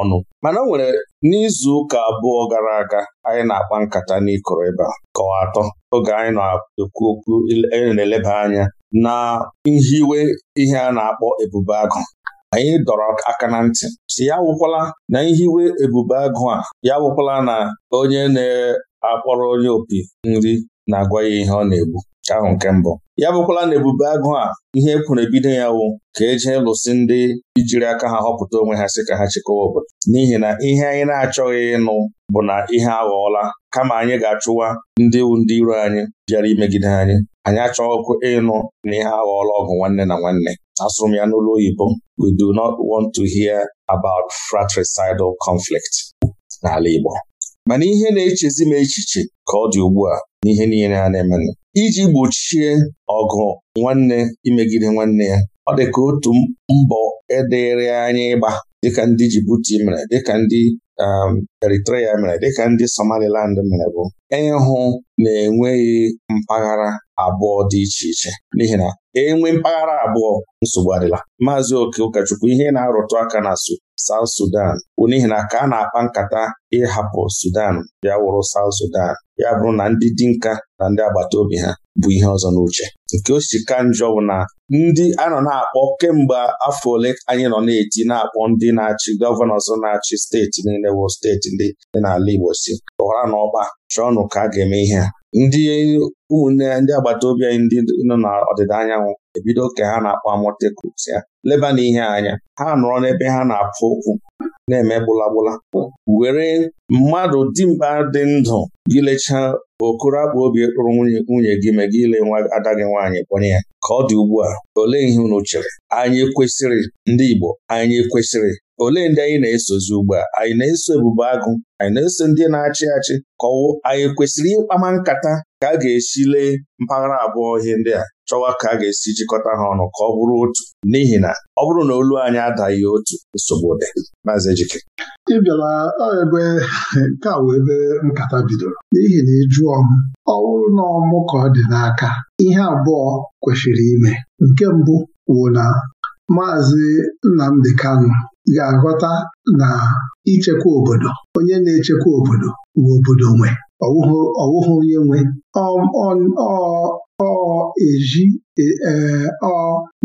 ọnụ mana o nwere n'izu ụka abụọ gara aga anyị na-akpa nkata n'ikoro ebe a kọwa atọ oge anyị na-ekwu okwu anyị e na-eleba anya na nhiwe ihe a na-akpọ ebube agụ anyị dọrọ aka na ntị si ya wụkwala na nhiwe ebube agụ a ya wụkwala na onye na-akpọrọ onye opi nri na-agwa ya ihe ọ na-egbu ahụ nke mbụ ya bụkwala na ebube agụ a ihe e kwuru ebido ya wụ ka eje lụsị ndị ijiri aka ha họpụta onwe ha si ka ha chịkọwa obodo n'ihi na ihe anyị na-achọghị ịnụ bụ na ihe aghọọla kama anyị ga-achụwa ndị ndị iro anyị bịara imegide anyị anyị achọghịkwa ịnụ na ihe aghọọla ọgụ nwanne na nwanne asụrụ m ya n'ụlọ oyibo we do not want to hear about fratricidal conflict n'ala Igbo mana ihe na-echezi m echiche ka ọ dị ugbu a n'ihe niile a na-emenụ iji gbochie ọgụ nwanne imegide nwanne ya ọ dị ka otu mbọ edere anya ịgba dịka ndị Jibuti mere dịka ndị um, Eritrea mere dịka ndị Somaliland mere bụ ịhụ na-enweghị mpaghara abụọ dị iche iche n'ihi na enwe mpaghara abụọ nsogbu adịla maazị oke ụkọchukwu ihe na-arụtụ aka na South Sudan bụ n'ihi na ka a na-akpa nkata ịhapụ Sudan bịa wụrụ South Sudan ya bụrụ na ndị dinka na ndị agbata obi ha bụ ihe ọzọ n'uche nke o si ka njọ bụ na ndị a nọ na-akpọ kemgbe afọ ole anyị nọ na-eti na-akpọ ndị na-achị gọvanọs na-achị steeti niile bụ steeti ndị dị n'ala Igbo si ụra na ọgba chọọnụ ka a ga-eme ihe a ndị ụmụnne ndị agbata obi anyị ndị nọ n'ọdịda anyanwụ ebido ka ha na-akpọ amọtekus ya leba na ihe anya ha nọrọ n'ebe ha na apụ okwu na-eme gbụlagbụla were mmadụ dimkpa dị ndụ ilecha okoro akpa obi kpụrụ nwunye gị ma gị ile nwa ada gị nwaanyị kpọnye ya ka ọ dị ugbu a olee ihe unu chere anyị kwesịrị ndị Igbo anyị kwesịrị olee ndị anyị na-esozi ugbu a anyị na-eso ebubo agụ anyị na-eso ndị na-achị achị ka anyị kwesịrị ịkpama nkata ka a ga-esi lee mpaghara abụọ ihe ndị a chọwa ka a ga-esi jikọta ha ọnụ ka ọ bụrụ otu n'ihi na ọ bụrụ na olu anyị adaghị otu nsogbu dị maazị Ejike ị bịara ebe nke a wee ebe nkata bidoro n'ihi na ịjụọ m ọ bụrụ na ọmụ ka ọ dị n'aka ihe abụọ kwesịrị ime nke mbụ wụ na maazị Nnamdi Kano ga-aghọta na ichekwa obodo onye na-echekwa obodo nwe obodo nwe ọwụhụ onye nwe ọ eji e, e, ọ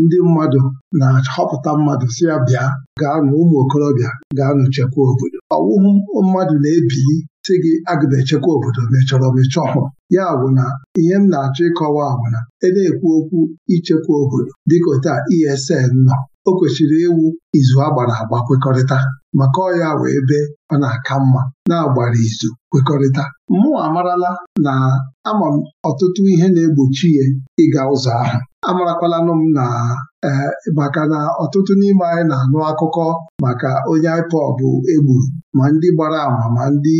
ndị mmadụ na-ahọpụta mmadụ si ya bịa gaanụ ụmụ okorobịa gaanụ chekwa obodo ọwụhụ mmadụ na-ebili si gị agaba echekwa obodo mechọrọ mechọhụ ya bụ na ihe m na-achọ ịkọwa bụ na e na-ekwu okwu ichekwa obodo dịka taa ESN nọ o kwesịrị ịwụ izu agbara agba kwekọrịta maka ọya wee ebe ọ na-aka mma na-agbara izu kwekọrịta mụ amarala na ama m ọtụtụ ihe na-egbochi ya ịga ụzọ ahụ amarakwalanu m na e, maka na ọtụtụ n'ime anyị na-anụ akụkọ maka onye IPOB egburu ma ndị gbara ama ma ndị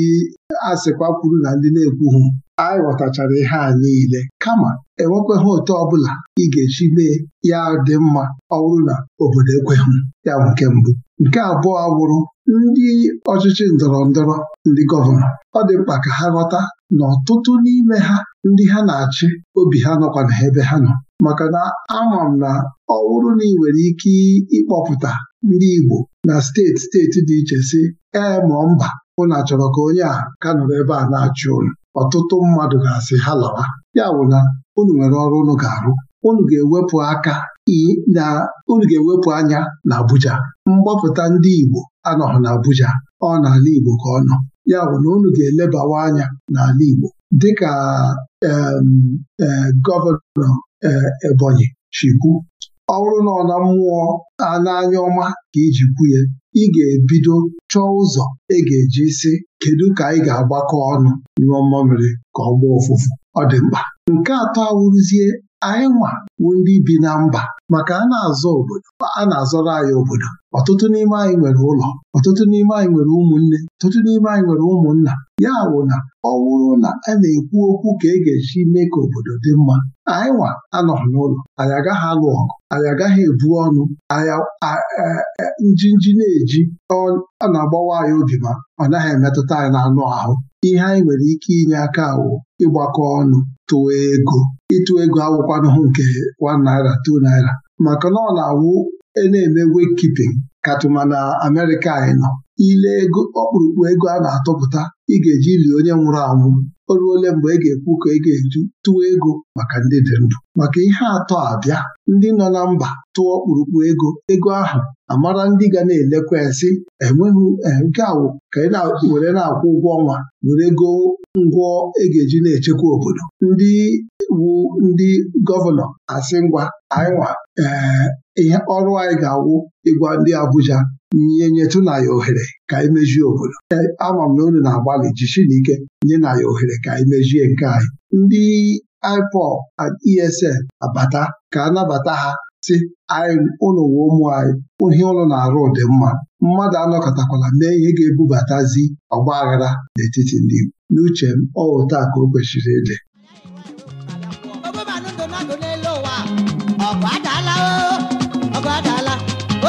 asịkwa kwuru na ndị na-ekwughị anyị ghọtachara ihe a niile kama enwekwaghị otu ọbụla ị ga-eji mee ya dị mma ọwụrụ na obodo ekweghị ya nke mbụ nke abụọ wụrụ ndị ọchịchị ndọrọ ndọrọ ndị gọvanọ ọ dị mkpa ka ha ghọta na ọtụtụ n'ime ha ndị ha na-achị obi ha nọkwa na ebe ha nọ maka na ama m na ọwụrụ na ị nwere ike ịkpọpụta ndị Igbo na steeti steeti dị iche si ee ma mba unu achọrọ ka onye a ka nọrọ ebe a na-achị ụlọ ọtụtụ mmadụ ga-asị ha lawa ya wụna na unu nwere ọrụ unu ga-arụ unu ga-ewepụ aka na unu ga-ewepụ anya na Abuja mgbapụta ndị Igbo anọghị na Abuja ọ n'ala Igbo ka ọ nọ ya bụ na unu ga-elebawa anya n'ala Igbo dịka gọvanọ Ebonyi chikwu ọ bụrụ na ọ na mmụọ na n'anya ọma ka iji kwu ị ga-ebido chọọ ụzọ ị ga-eji si kedu ka anyị ga-agbakọ ọnụ nyụọ mmamịrị ka ọ gbaa ụfụfụ ọ dị mkpa nke atọ awụrụzie anyị nwa bụ ndị bi na mba maka a na-azọ obodo a na-azọrọ anyị obodo ọtụtụ n'ime anyị nwere ụlọ ọtụtụ n'ime anyị nwere ụmụnne ọtụtụ n'ime anyị nwere ụmụnna ya bụ na ọ bụrụ na a na-ekwu okwu ka e ga eji mee ka obodo dị mma anyị nwa anọghị n'ụlọ anyị agaghị alụ ọgụ anyị agaghị ebu ọnụ anyị njinji e, e, na-eji ọ na-agbawa anyị obi ma ọ naghị emetụta anyị n'anụ ahụ ihe anyị nwere ike inye aka awụ ịgbakọ ọnụ tụọ ego ịtụ ego awụkwanụhụ nke 1 naira 2 naira maka na ọ na-awụ e na-eme wekipin katụma na Amerịka anyị nọ ile ego ọkpụrụkpụ ego a na-atọpụta ị ga-eji lie onye nwụrụ anwụ o ruole mgbe ị ga-ekwu ka e ga-eju tụọ ego maka ndị dị ndụ maka ihe atọ abịa ndị nọ na mba tụọ kpurukpu ego ego ahụ amara ndị ga na-elekwa esi enweghị e, nke awụ ka ị were na-akwụ ụgwọ ọnwa were ego ngwọ e ga-eji na-echekwa obodo ndị wu ndị gọvanọ asị ngwa anyịnwa ee ihe ọrụ anyị ga-awụ ịgwa ndị Abuja nye nyetụna ya ohere ka anyị mejie obodo e, ama m na unu na-agbalị jisina chinike nye na ya ohere ka anyị mejie nke anyị ndị IPOB Esl abata ka anabata ha si anyị ụlọ uwe ụmụ anyị uhi ụlọ na-arụ ụdị mma mmadụ anọkọtakwala mee ihe ga-ebubatazi ọgba aghara n'etiti ndị Igbo n'uche m ọ taa ka o kwesịrị ịdị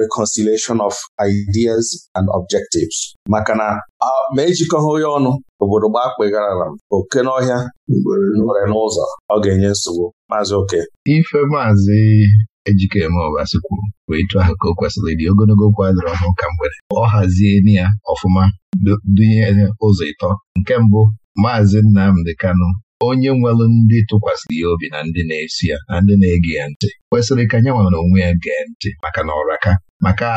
reconciliation of ideas and objectives maka na ma ejikọ ha onye ọnụ obodo gbaa kpegharara oke n'ọhịa nwere n'ụzọ ọ ga-enye nsogbu maazị oke ife maazị ejikeme ọbasi kwuru wee etu ahụ ka o kwesịrị dị ogologo kwadoro ọhụụ ka mgbede ọ hazie na ya ọfụma dunye ụzọ ịtọ nke mbụ maazị Nnamdi Kanụ onye nwere ndị tụkwasịrị ya obi na ndị na-esi ya na ndị na-ege ya ntị kwesịrị ka anya na onwe ya gee ntị maka na ọraka maka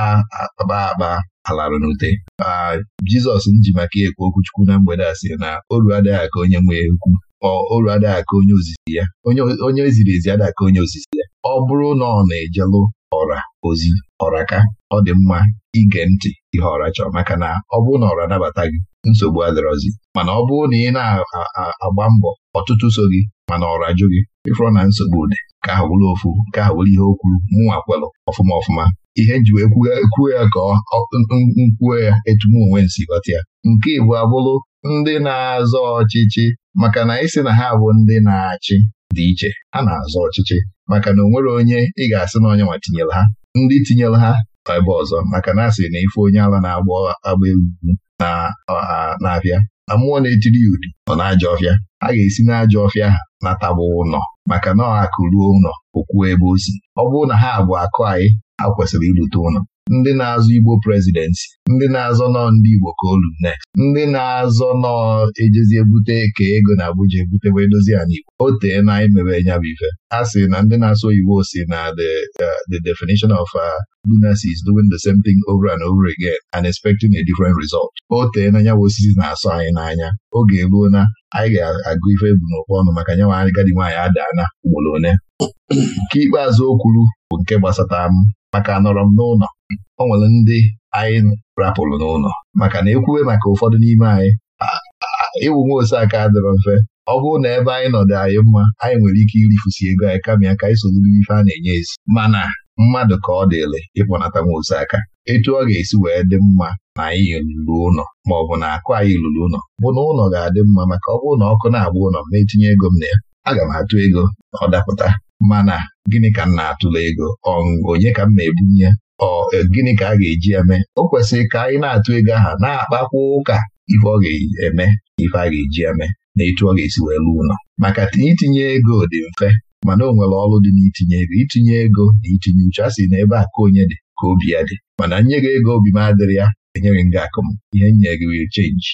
akpa akpa alarụ n'ute ah, jizọs nji maka ekwu okwuchukwu na mgbede a sị na oru adịghị aka onye nwe ekwu ọ oru adaka onye ozizi ya onye eziri ezi adaka onye ozizi ya ọ bụrụ na ọ na-ejelụ ọra ozi ọraka ọ dị mma ige ntị ihe ọra chọọ maka na ọ bụrụ na ọra nabata gị nsogbu adịrọzi mana ọ bụrụ na ị na-agba mbọ ọtụtụ so gị mana ọra jụ gị ịfụrọ na nsogbu dị ka ahụ wụrụ ofu ka ahụ wụrụ ihe okwu mụnwa kwelụ ọfụma ọfụma ihe njiwe kwuo ya ka nkwuo ya etu m onwe m si ghọta ya nke Igbo abụrụ ndị na-azọ ọchịchị maka na ịsị na ha bụ ndị na-achị dị iche ha na azụ ọchịchị maka na o nwere onye ị ga-asị na onye tinyere ha ndị tinyere ha ebe ọzọ maka na asị na ife onye ala na-agba agba egwu na na na mmụọ na-etiri ya udi nọ n'ajọ ọfịa a ga-esi n'ajọ ọfịa ha natabụ ụlọ maka na ọ ruo ụlọ okwuo ebe osi. ọ bụrụ na ha abụọ akụ anyị ha kwesịrị irute ụlọ ndị na-azọ Igbo prezidenti ndị na-azọ nọ ndị Igbo ka olune ndị na-azọ nọ ejezi ebute ka ego na Abuja ebutewe edozi anyị Igbo o tee na anyị mere ya bụ ife a sị na ndị na-asụ Igbo si na the uh, definition of uh, lunacy is doing the same thing over and over again and expecting a different result. o tee na nyawa osisi na asụ anyị n'anya oge ruo na anyị ga-agụ ife ebu n'ụkpọ ọnụ maka nyanwa agadi nwaanyị ada ugboro one nke ikpeazụ o kwuru bụ nke gbasatara m maka anọrọ m n'ụlọ ọ nwere ndị anyị rapụrụ n'ụlọ maka na ekwuwe maka ụfọdụ n'ime anyị ịwụ nwa ose aka adịrọ mfe ọ bụrụ na ebe anyị nọdụ anyị mma anyị nwere ike irifusi ego anyị kama ya ka anyị sozuru ife a na-enye ezi mana mmadụ ka ọ dịrị ịkpọnata nwa ose aka etu ọ ga-esi wee dị mma na anyị ruru ụlọ ma ọ bụ na akụ anyị ruru ụlọ bụ na ụlọ ga-adị mma maka ọ bụrụ na ọkụ na-agba ụlọ ma etinye ego m na ya aga m atụ ego ọ dapụta mana gịnị ka m na atụle ego ọ onye ka m na-ebunye ọ e, gịnị ka a ga-eji eme o kwesịrị ka anyị na-atụ ego aha na-akpakwa ụka ife ọ ga-eme ife a ga-eji eme na etu ọ ga-esi wee lụọ ụlọ maka itinye ego dị mfe mana o nwere ọrụ dị n'itinye ego itinye ego na itinye uche a sị na ebe a ka onye dị ka obi ya dị mana nye ego obi m adịrị ya enyere m gị akụm ihe m nye gị wil chenji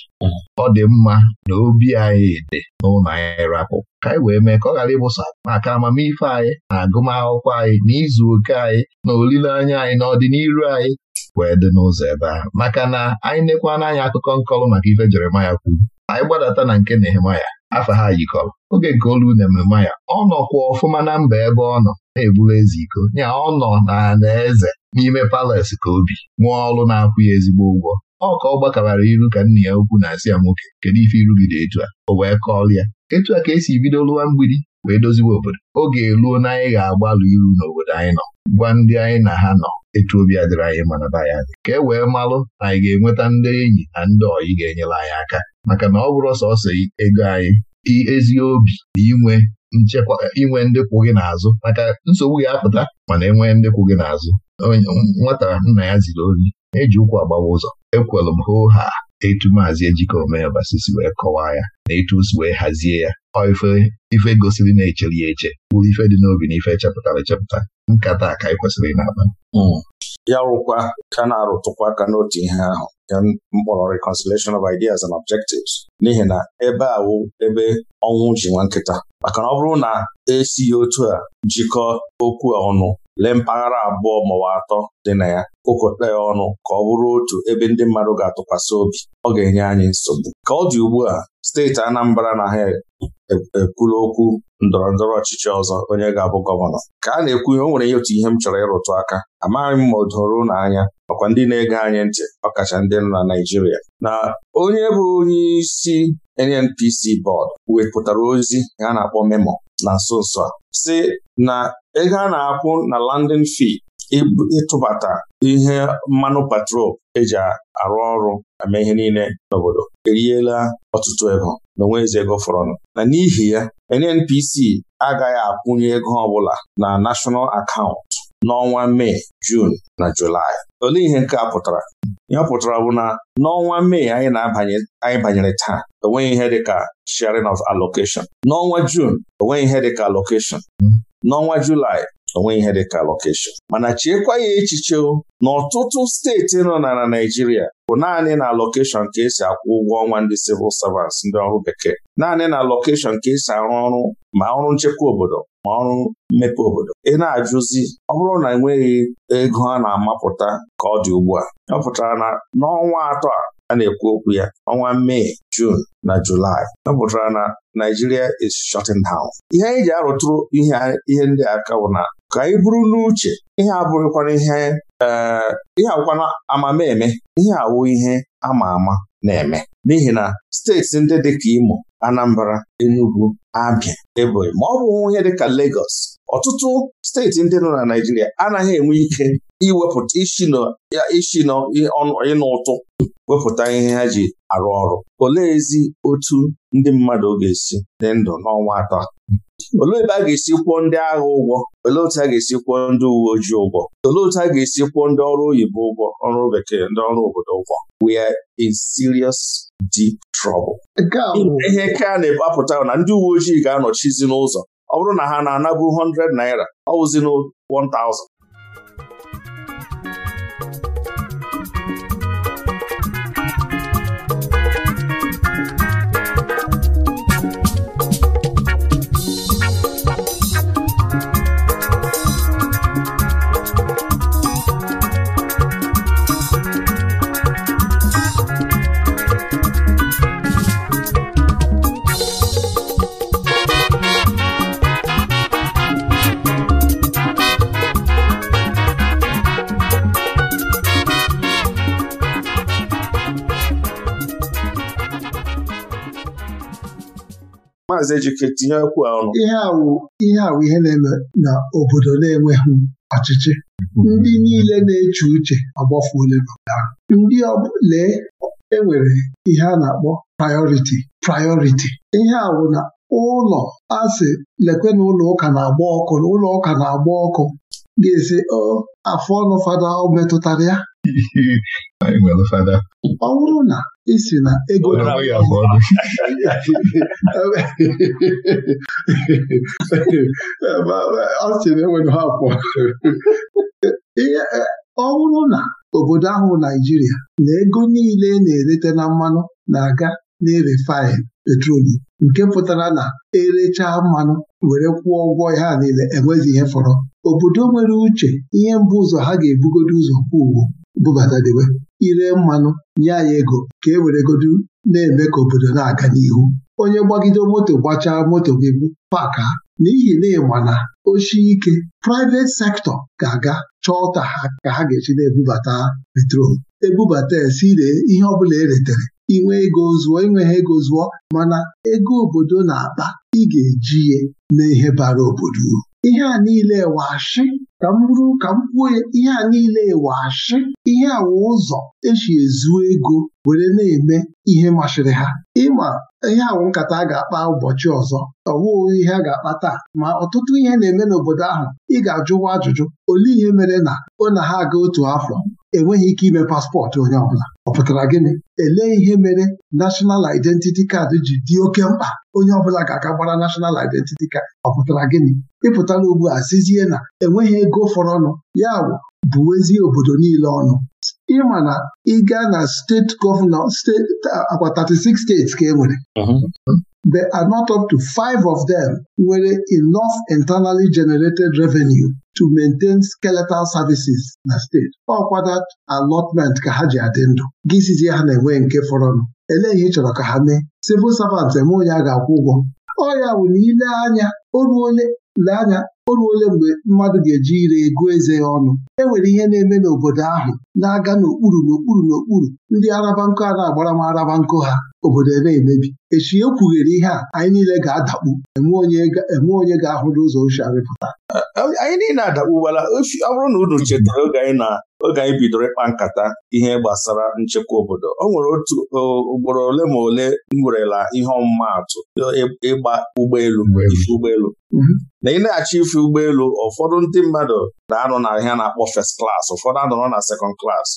ọ dị mma na obi anyị dị n'ụlọ anyị rapụ ka anyị wee mee ka ọ ghara ịbụsa maka amamife anyị na agụmakwụkwọ anyị na izu oke anyị na olileanya anyị na ọdịnihu anyị wee dị n'ụzọ ebe ahụ maka na anyị nekwa n'anya akụkọ nkọlụ maka ife Jeremaya kwuru anyị gbadata na nke Nehemaya afa ha yikọrọ oge nke olu na-ememe ya ọ nọkwa ọfụma na mba ebe ọ nọ na ebulu eze iko ya ọ nọ na na eze n'ime palace ka obi nwee ọrụ na-akwụ ya ezigbo ụgwọ ọ ka ọ gbakọbara iru ka nna ya okwu na-asị ya nwoke kedu ife irugide etu a o wee kọọlụ ya etu a ka esi bido lụwa mgbidi wee doziwe obodo oge eruo na anyị ga-agbalụ iru n'obodo anyị nọ gwa ndị anyị na ha nọ etu obi adịrị anyị mana ba dị ka e wee malụ na anyị ga-enweta ndị enyi na ndị ọyị ga-enyere anyị aka maka na ọ bụrụ ọsọsọ ego anyị ezi obi na inwe nchekwa inwe ndị kwụ gị n'azụ maka nsogbu ga-apụta mana enwe ndị kwụ gị n'azụ nwata nna ya ziri ori eji ụkwụ agbawa ụzọ ekwelụ m hoo ha etu maazị ejikọmebasi si wee kọwaa ya na etu si wee hazie ya ọ ife gosiri na-echeri ya eche bụrụ ife dị n'obi na ife chepụtara echepụta nkata ka anyị kwesịrị ịna agba hmm. ya rụkwa ka na-arụtụkwa aka n'otu ihe ahụ mkpọrọ reconciliation of ideas and objectives n'ihi na ebe a wụ ebe ọnwụ ji nwa nkịta maka na ọ bụrụ na esighị otu a jikọọ okwu ọnụ lee mpaghara abụọ maọbụ atọ dị na ya kpokọta ya ọnụ ka ọ bụrụ otu ebe ndị mmadụ ga-atụkwasị obi ọ ga-enye anyị nsogbu ka ọ dị ugbu a steeti Anambra na ha e, e, ekwula okwu ndọrọ ndọrọ ọchịchị ọzọ onye ga-abụ gọvanọ ka a na-ekwu ihe o nwere otu ihe m chọrọ ịrụtụ aka amaghị m ma ọ doro na anya ọkwa ndị na-ege anya ntị ọkacha ndị nọ na Naịjirịa na onye bụ onye isi NNPC bọọdụ wepụtara ozi ha na-akpọ memo na nso nso a si na ego a na-akwụ na landin fee ịtụbata ihe mmanụ patrol eji arụ ọrụ ama ihe niile n'obodo eriela ọtụtụ ego na eze ego fọrọnụ na n'ihi ya NNPC agaghị akwụnye ego ọbụla na nashọnal akaụntụ n'ọnwa Mee Jun na Julaị olee ihe nke a pụtara ihe ọ pụtara bụ na n'ọnwa Mee anyị na-abanye anyị banyere taa enweghị ihe dịka sharing of allocation n'ọnwa Jun enweghị ihe dịka allocation hmm. n'ọnwa Julaị onweghị ihe dịka alọkeshọn mana chiekwa ya echiche n'ọtụtụ steeti nọ na Naịjirịa bụ naanị na alọkeshọn ka esi akwụ ụgwọ ọnwa ndị sivil servants ndị ọrụ bekee naanị na alọkeshọn ka esi arụ ọrụ ma ọrụ nchekwa obodo ma ọrụ mmepe obodo ị na-ajụzi ọ bụrụ na enweghị ego a na-amapụta ka ọ dị ugbu a ọ pụtara na n'ọnwa atọ a a na-ekwu okwu ya ọnwa Mee jun na Julaị ọ pụtara na Nigeria is shutting down. ihe anyị ji arụtụrụ ihe ndị aka bụ na ka anyị bụrụ n'uche ihe abụghịkwana ihe eh, ihe agwụkwana eme ihe awụ ihe ama ama na-eme n'ihi na steeti ndị ka Imo Anambra Enugu Abia Ebonyi ma ọ bụ ihe dịka legos ọtụtụ steeti ndị nọ na Naijiria anaghị enwe ike iwepụta isi n'ịnụ ụtụ wepụta ihe ha ji arụ ọrụ olee ezi otu ndị mmadụ ga-esi dị ndụ n'ọnwa atọ olee ebe a ga-esi kwụọ ndị agha ụgwọ olee otu a ga-esi kwụọ ndị uwe ojii ụgwọ olee otu a ga-esi kwụọ ndị ọrụ oyibo ụgwọ ọrụ bekee ndị ọrụ obodo ụgwọ we are in serious deep trouble ihe ka a na apụta na ndị uwe ojii ga-anọchizi n'ụzọ ọ bụrụ na ha na-anabụ 100 naira ọ wụzi na 1000 Maazị Ejike tinye okwu ọnụ ihe awụ ihe awụ ihe na-eme na obodo na-enweghị ọchịchị ndị niile na-eche uche agbafuola n'obodo ahụ ndị lee enwere ihe a na-akpọ priority priority ihe awụ na ụlọ asị lekwe na ụlọ ụka na-agba ọkụ na ụlọ ụka na-agba ọkụ ga-esi afọ ọnụ fada metụtara ya ọ bụrụ e, na ị si na ego e ya ọ na enweghị ọ bụrụ na obodo ahụ Naijiria na ego niile na-erete na mmanụ na-aga na-erefai petrolium nke pụtara na erechaa mmanụ were kwụọ ụgwọ ha niile enwezi ihe fọrọ obodo nwere uche ihe mbụ ụzọ ha ga-ebugodo ụzọ kwụ ugbo bubata debe ire mmanụ nye anyị ego ka e were godu na-eme ka obodo na-aga n'ihu onye gbagide moto gbachaa moto gị paka n'ihi na ịma na oshi ike private sektọ ga-aga chọọta ha ka ha ga-eji na-ebubata petrol ebubata esi ree ihe ọbụla eretere inwe ego zụọ inweghị ego zụọ mana ego obodo na-akpa ị ga-eji ya ihe bara obodo uru ihe a niile washị ka m ruo ka m kwuo ya ihe a niile washị ihe awa ụzọ eji ezu ego were na-eme ihe masịrị ha ịma ihe awụ nkata a ga-akpa ụbọchị ọzọ ọwụghị ihe a ga-akpa taa ma ọtụtụ ihe na-eme n'obodo ahụ ị ga-ajụwa ajụjụ olee ihe mere na ọ na ha aga otu afọ enweghị ike ime paspọtụ onye ọbụla ọ pụtara gịnị elee ihe mere nashọnal identiti kaadị ji dị oke mkpa onye ọbụla ga-aka gbara Identity identiti ka ọ pụtara gịnị ịpụtala ugbu a sizie na enweghị ego fọrọnụ ya bụ ezi obodo niile ọnụ ịma na ịga na steeti gọvanọ steeti akwa 36 steeti ka e nwere mhm. the are not up to five of them nwere enough internally generated revenue to maintain skeletal services na steeti ọkwada allotment ka ha ji adị ndụ gị sizie ha na-enwe nke fọrọnụ elee ihe ị chọrọ ka ha mee sivil servant eme onye a ga-akwụ ụgwọ ọ ya bụ na ile anya oruole le anya oru ruole mgbe mmadụ ga-eji ire ego eze ya ọnụ e nwere ihe na-eme n'obodo ahụ na-aga n'okpuru n'okpuru n'okpuru ndị araba nkụ a na-agbara m araba nkụ ha obodo ebe emebi echi ekwughere ihe a anyị niile ga-adakpu eme e onye ga-ahụ n'ụzọ ochie arịpụta anyị niile adakpuwala ọ bụrụ na unu chetara oge anyị na oge anyị bidoro ịkpa nkata ihe gbasara nchekwa obodo ọ nwere otu ugboro ole ma ole mwerela ihe ọmụmaatụ e, ịgba ụgbọelu ife ụgbọelu mhm. na ị na-achọ ife ụgbọelu ụfọdụ ndị mmadụ na-anọ na ihe na-akpọ first class ụfọdụ anọrọ na sekọnd class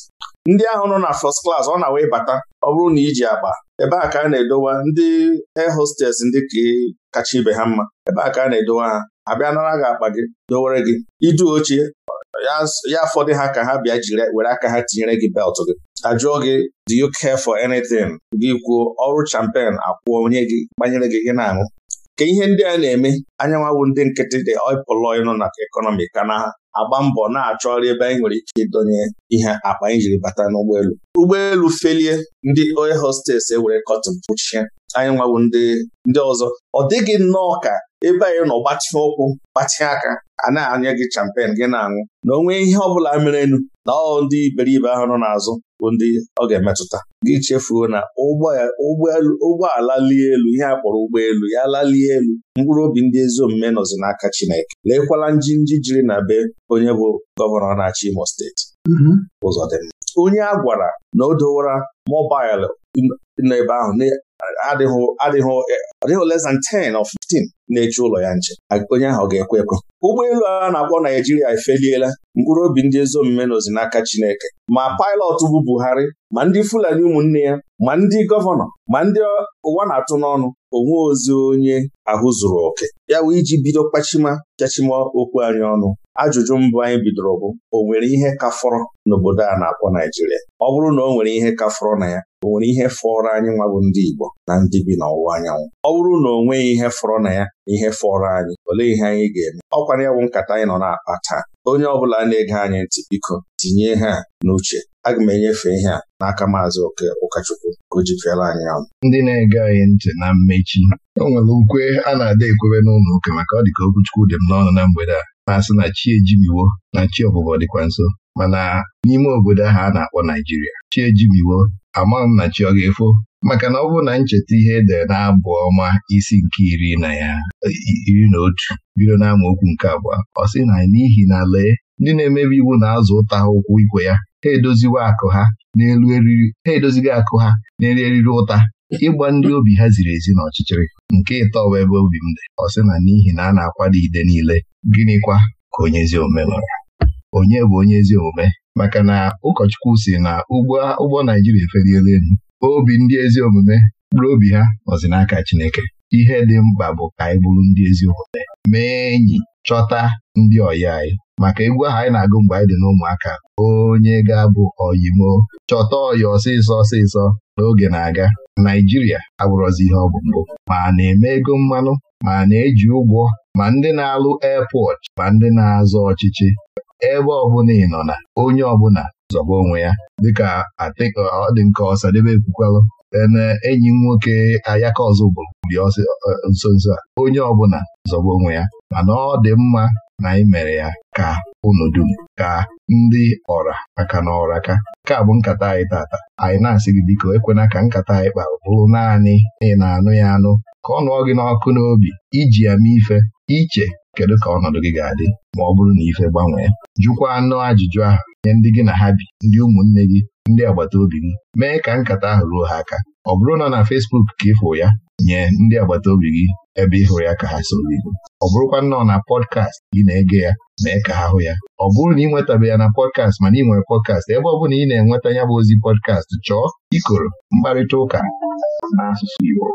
ndị ahụ nọ na first class ọ na-awee bata ọ bụrụ na iji akpa ebe a ka a na-edowa ndị air hostess ndị kacha ibe ha mma ebe a ka a na-edowa ha abịa nara gị akpa gị dowere gị idu ochie ya fọdụ ha ka ha bịa jiri were aka ha tinyere gị belt gị ajụọ gị do you care for anything gị kwuo ọrụ champagne akwụọ onye gị gbanyere gị gị na-aṅụ ka ihe ndị a na-eme anyanwụ ndị nkịtị dị oipoloi nọ na ekọnọmi ka na agba mbọ na achọ ọrịa ebe anyị nwere ike ịdonye ihe akpa anyị jiri bata n'ụgbọelu ụgbọelu felie ndị onye hostes ewere kọtịn kpuchie anyị nwawo ndị ọzọ ọ dịghị nnọọ ka ebe anyị nọ gbatịa ụkwụ gbatịa aka a na-anya gị champen gị na-aṅụ na onwe ihe ọ bụla merenụ na ọ ndị iberibe ahụ nọ n'azụ bụ ndị ọ ga-emetụta gị chefuo na ụgbọala lie elu ihe a kpọrọ ụgbọelu ya lalie elu mkpụrụ obi ndị ezi omume nọzi n'aka Chineke leekwala njinji jiri na be onye bụ gọvanọ na-achị Imo steeti mm-hmm. ụzọ dị mma. onye a gwara na o dowara mobail n'ebe ahụ adịghị adịghị eh, adịghị less than 10 or 15 na-eche ụlọ ya nche onye ahụ ọ ga-ekwe ekwe ụgbọelu a na-akpọ Naijiria efeliela mkpụrụ obi ndị ezi omume na ozinaka Chineke ma pilot bụ Buhari ma ndị Fulani ụmụnne ya ma ndị gọvanọ ma ndị ụwa na-atụ n'ọnụ onwe ozi onye ahụ zuru oke ya wee iji bido kpachima Kachima okwu anyị ọnụ ajụjụ mbụ anyị bidoro bụ o nwere ihe ka fọrọ n'obodo a na-akpọ Naijiria ọ bụrụ na o nwere ihe ka fọrọ na ya o nwere ihe fọrọ anyị nwa bụ ndị Igbo na ndị bi n'ọwụwa anyanwụ ọ bụrụ na o nweghị ihe fọrọ na ya na ihe fọrọ anyị olee ihe anyị ga-eme ọkwara ya bụ nkata anyị nọ na-akpa taa onye ọ bụla na-ege anyị ntị biko tinye ihe a n'uche aga m enyefe ihe a n'aka maazị oke ụkọchukwu ka o jifeela anyị ọnụ ndị na-ege anyị ntị na mmechi o nwere ukwe a na-ada ekwebe n'ụlọ ụka maka ọ dị ka okwuchukwu dị m n'ọnụ na mgbede a na-asị na chi ejimiwo na chi ọbụbọ dịkwa nso mana n'ime obodo ahụ a na-akpọ Naijiria chi ejimiwo, amaghị m na chi ọ ga-efo maka na ọ bụrụ na ncheta ihe edere na-abụ ọma isi nke iri na ya iri na otu bido okwu nke abụọ ọ sị na n'ihi na lee ndị na-emebi iwu na-azụ ụta ụkwụ ikwe ya ha edoziwo akụ ha n'elu eriri ha edozigo akụ ha n'elu eriri ụta ịgba ndị obi ha ziri ezi na ọchịchịrị nke ịtọwa ebe obi m dị ọ sị na n'ihi na a na-akwado ide niile gịnịkwa ka onye ezi omume nwere onye bụ onye ezi omume maka na ụkọchukwu si na ụgbọ Naijiria efeliela elu obi ndị ezi omume mkpụrụ obi ha nọzi n'aka Chineke ihe dị mkpa bụ ka anyị bụrụ ndị ezi omume mee enyi chọta ndị ọyị anyị maka egwu ahụ anyị na-agụ mgbe anyị dị n'ụmụaka onye ga-abụ ọyịmo chọta ọyị ọsịsọ ọsịsọ n'oge na-aga Naijiria abụrọzi ihe ọ bụ mbụ ma na-eme ego mmanụ ma na-eji ụgwọ ma ndị na-alụ airport ma ndị na-azọ ọchịchị ebe ọbụla ị nọ na onye ọbụla zọba onwe ya dịka ọ dị nke Ọsadebe ekwukwalụ na enyi nwoke Ayaka ọzọ bụ nso nso a onye ọbụla zọba onwe ya mana ọ dị mma na anyị mere ya ka unu dum ka ndị ọra aka na ọra aka nke bụ nkata anyị tata anyị na-asị gị biko ekwena ka nkata anyị kpara bụrụ naanị ị na-anụ ya anụ ka ọ nụọ gị n'ọkụ n'obi iji ya mee ife iche kedu ka ọnọdụ gị ga-adị ma ọ bụrụ na ife gbanwee jụkwa anụ ajụjụ ahụ nye ndị gị na ha bi ndị ụmụnne gị ndị agbata obi gị mee ka nkata ahụ ruo ha aka ọ bụrụ na na Fesbuk ka ịfụ ya nye ndị agbata obi gị ebe ị hụ ya ka ha so ibu ọ bụrụkwa nnọọ na pọdkast gị na-ege ya mee ka ha hụ ya ọ bụrụ na ị nwetabe ya na pọdkast mana ị nwere pọdkast ebe ọ bụla ị na-enweta ya bụ ozi pọdkast chọọ ikoro mkparịta ụka n'asụsụ Igbo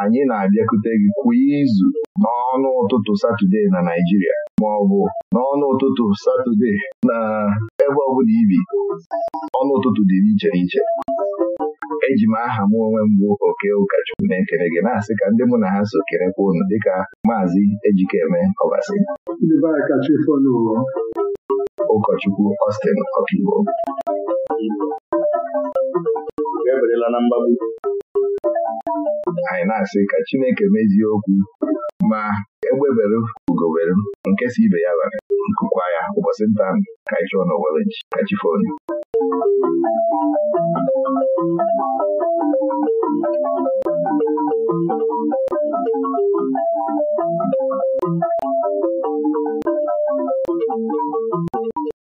anyị na-abịakute gị kwa izu n'ọnụ ụtụtụ Satọde na Naịjirịa ma ọ bụ n'ọnụ ụtụtụ Satọde na ebe ọ bụla ibi ọnụ ụtụtụ dị iche n'iche eji m aha m onwe m oke ụkọchukwu na-ekele gị na-asị ka ndị mụ na ha so kerekwa unu dịka maazị Ejikeme Ọbasi ụkọchukwu Austin Ọkigbo e anyị na-asị ka Chineke mezie okwu ma egbebere ugobere nke si ibe ya bara nkụkwa ya ụbọchị nta ka anyị chụọ ka eeeeaae aaadedea eeaaa aaaaa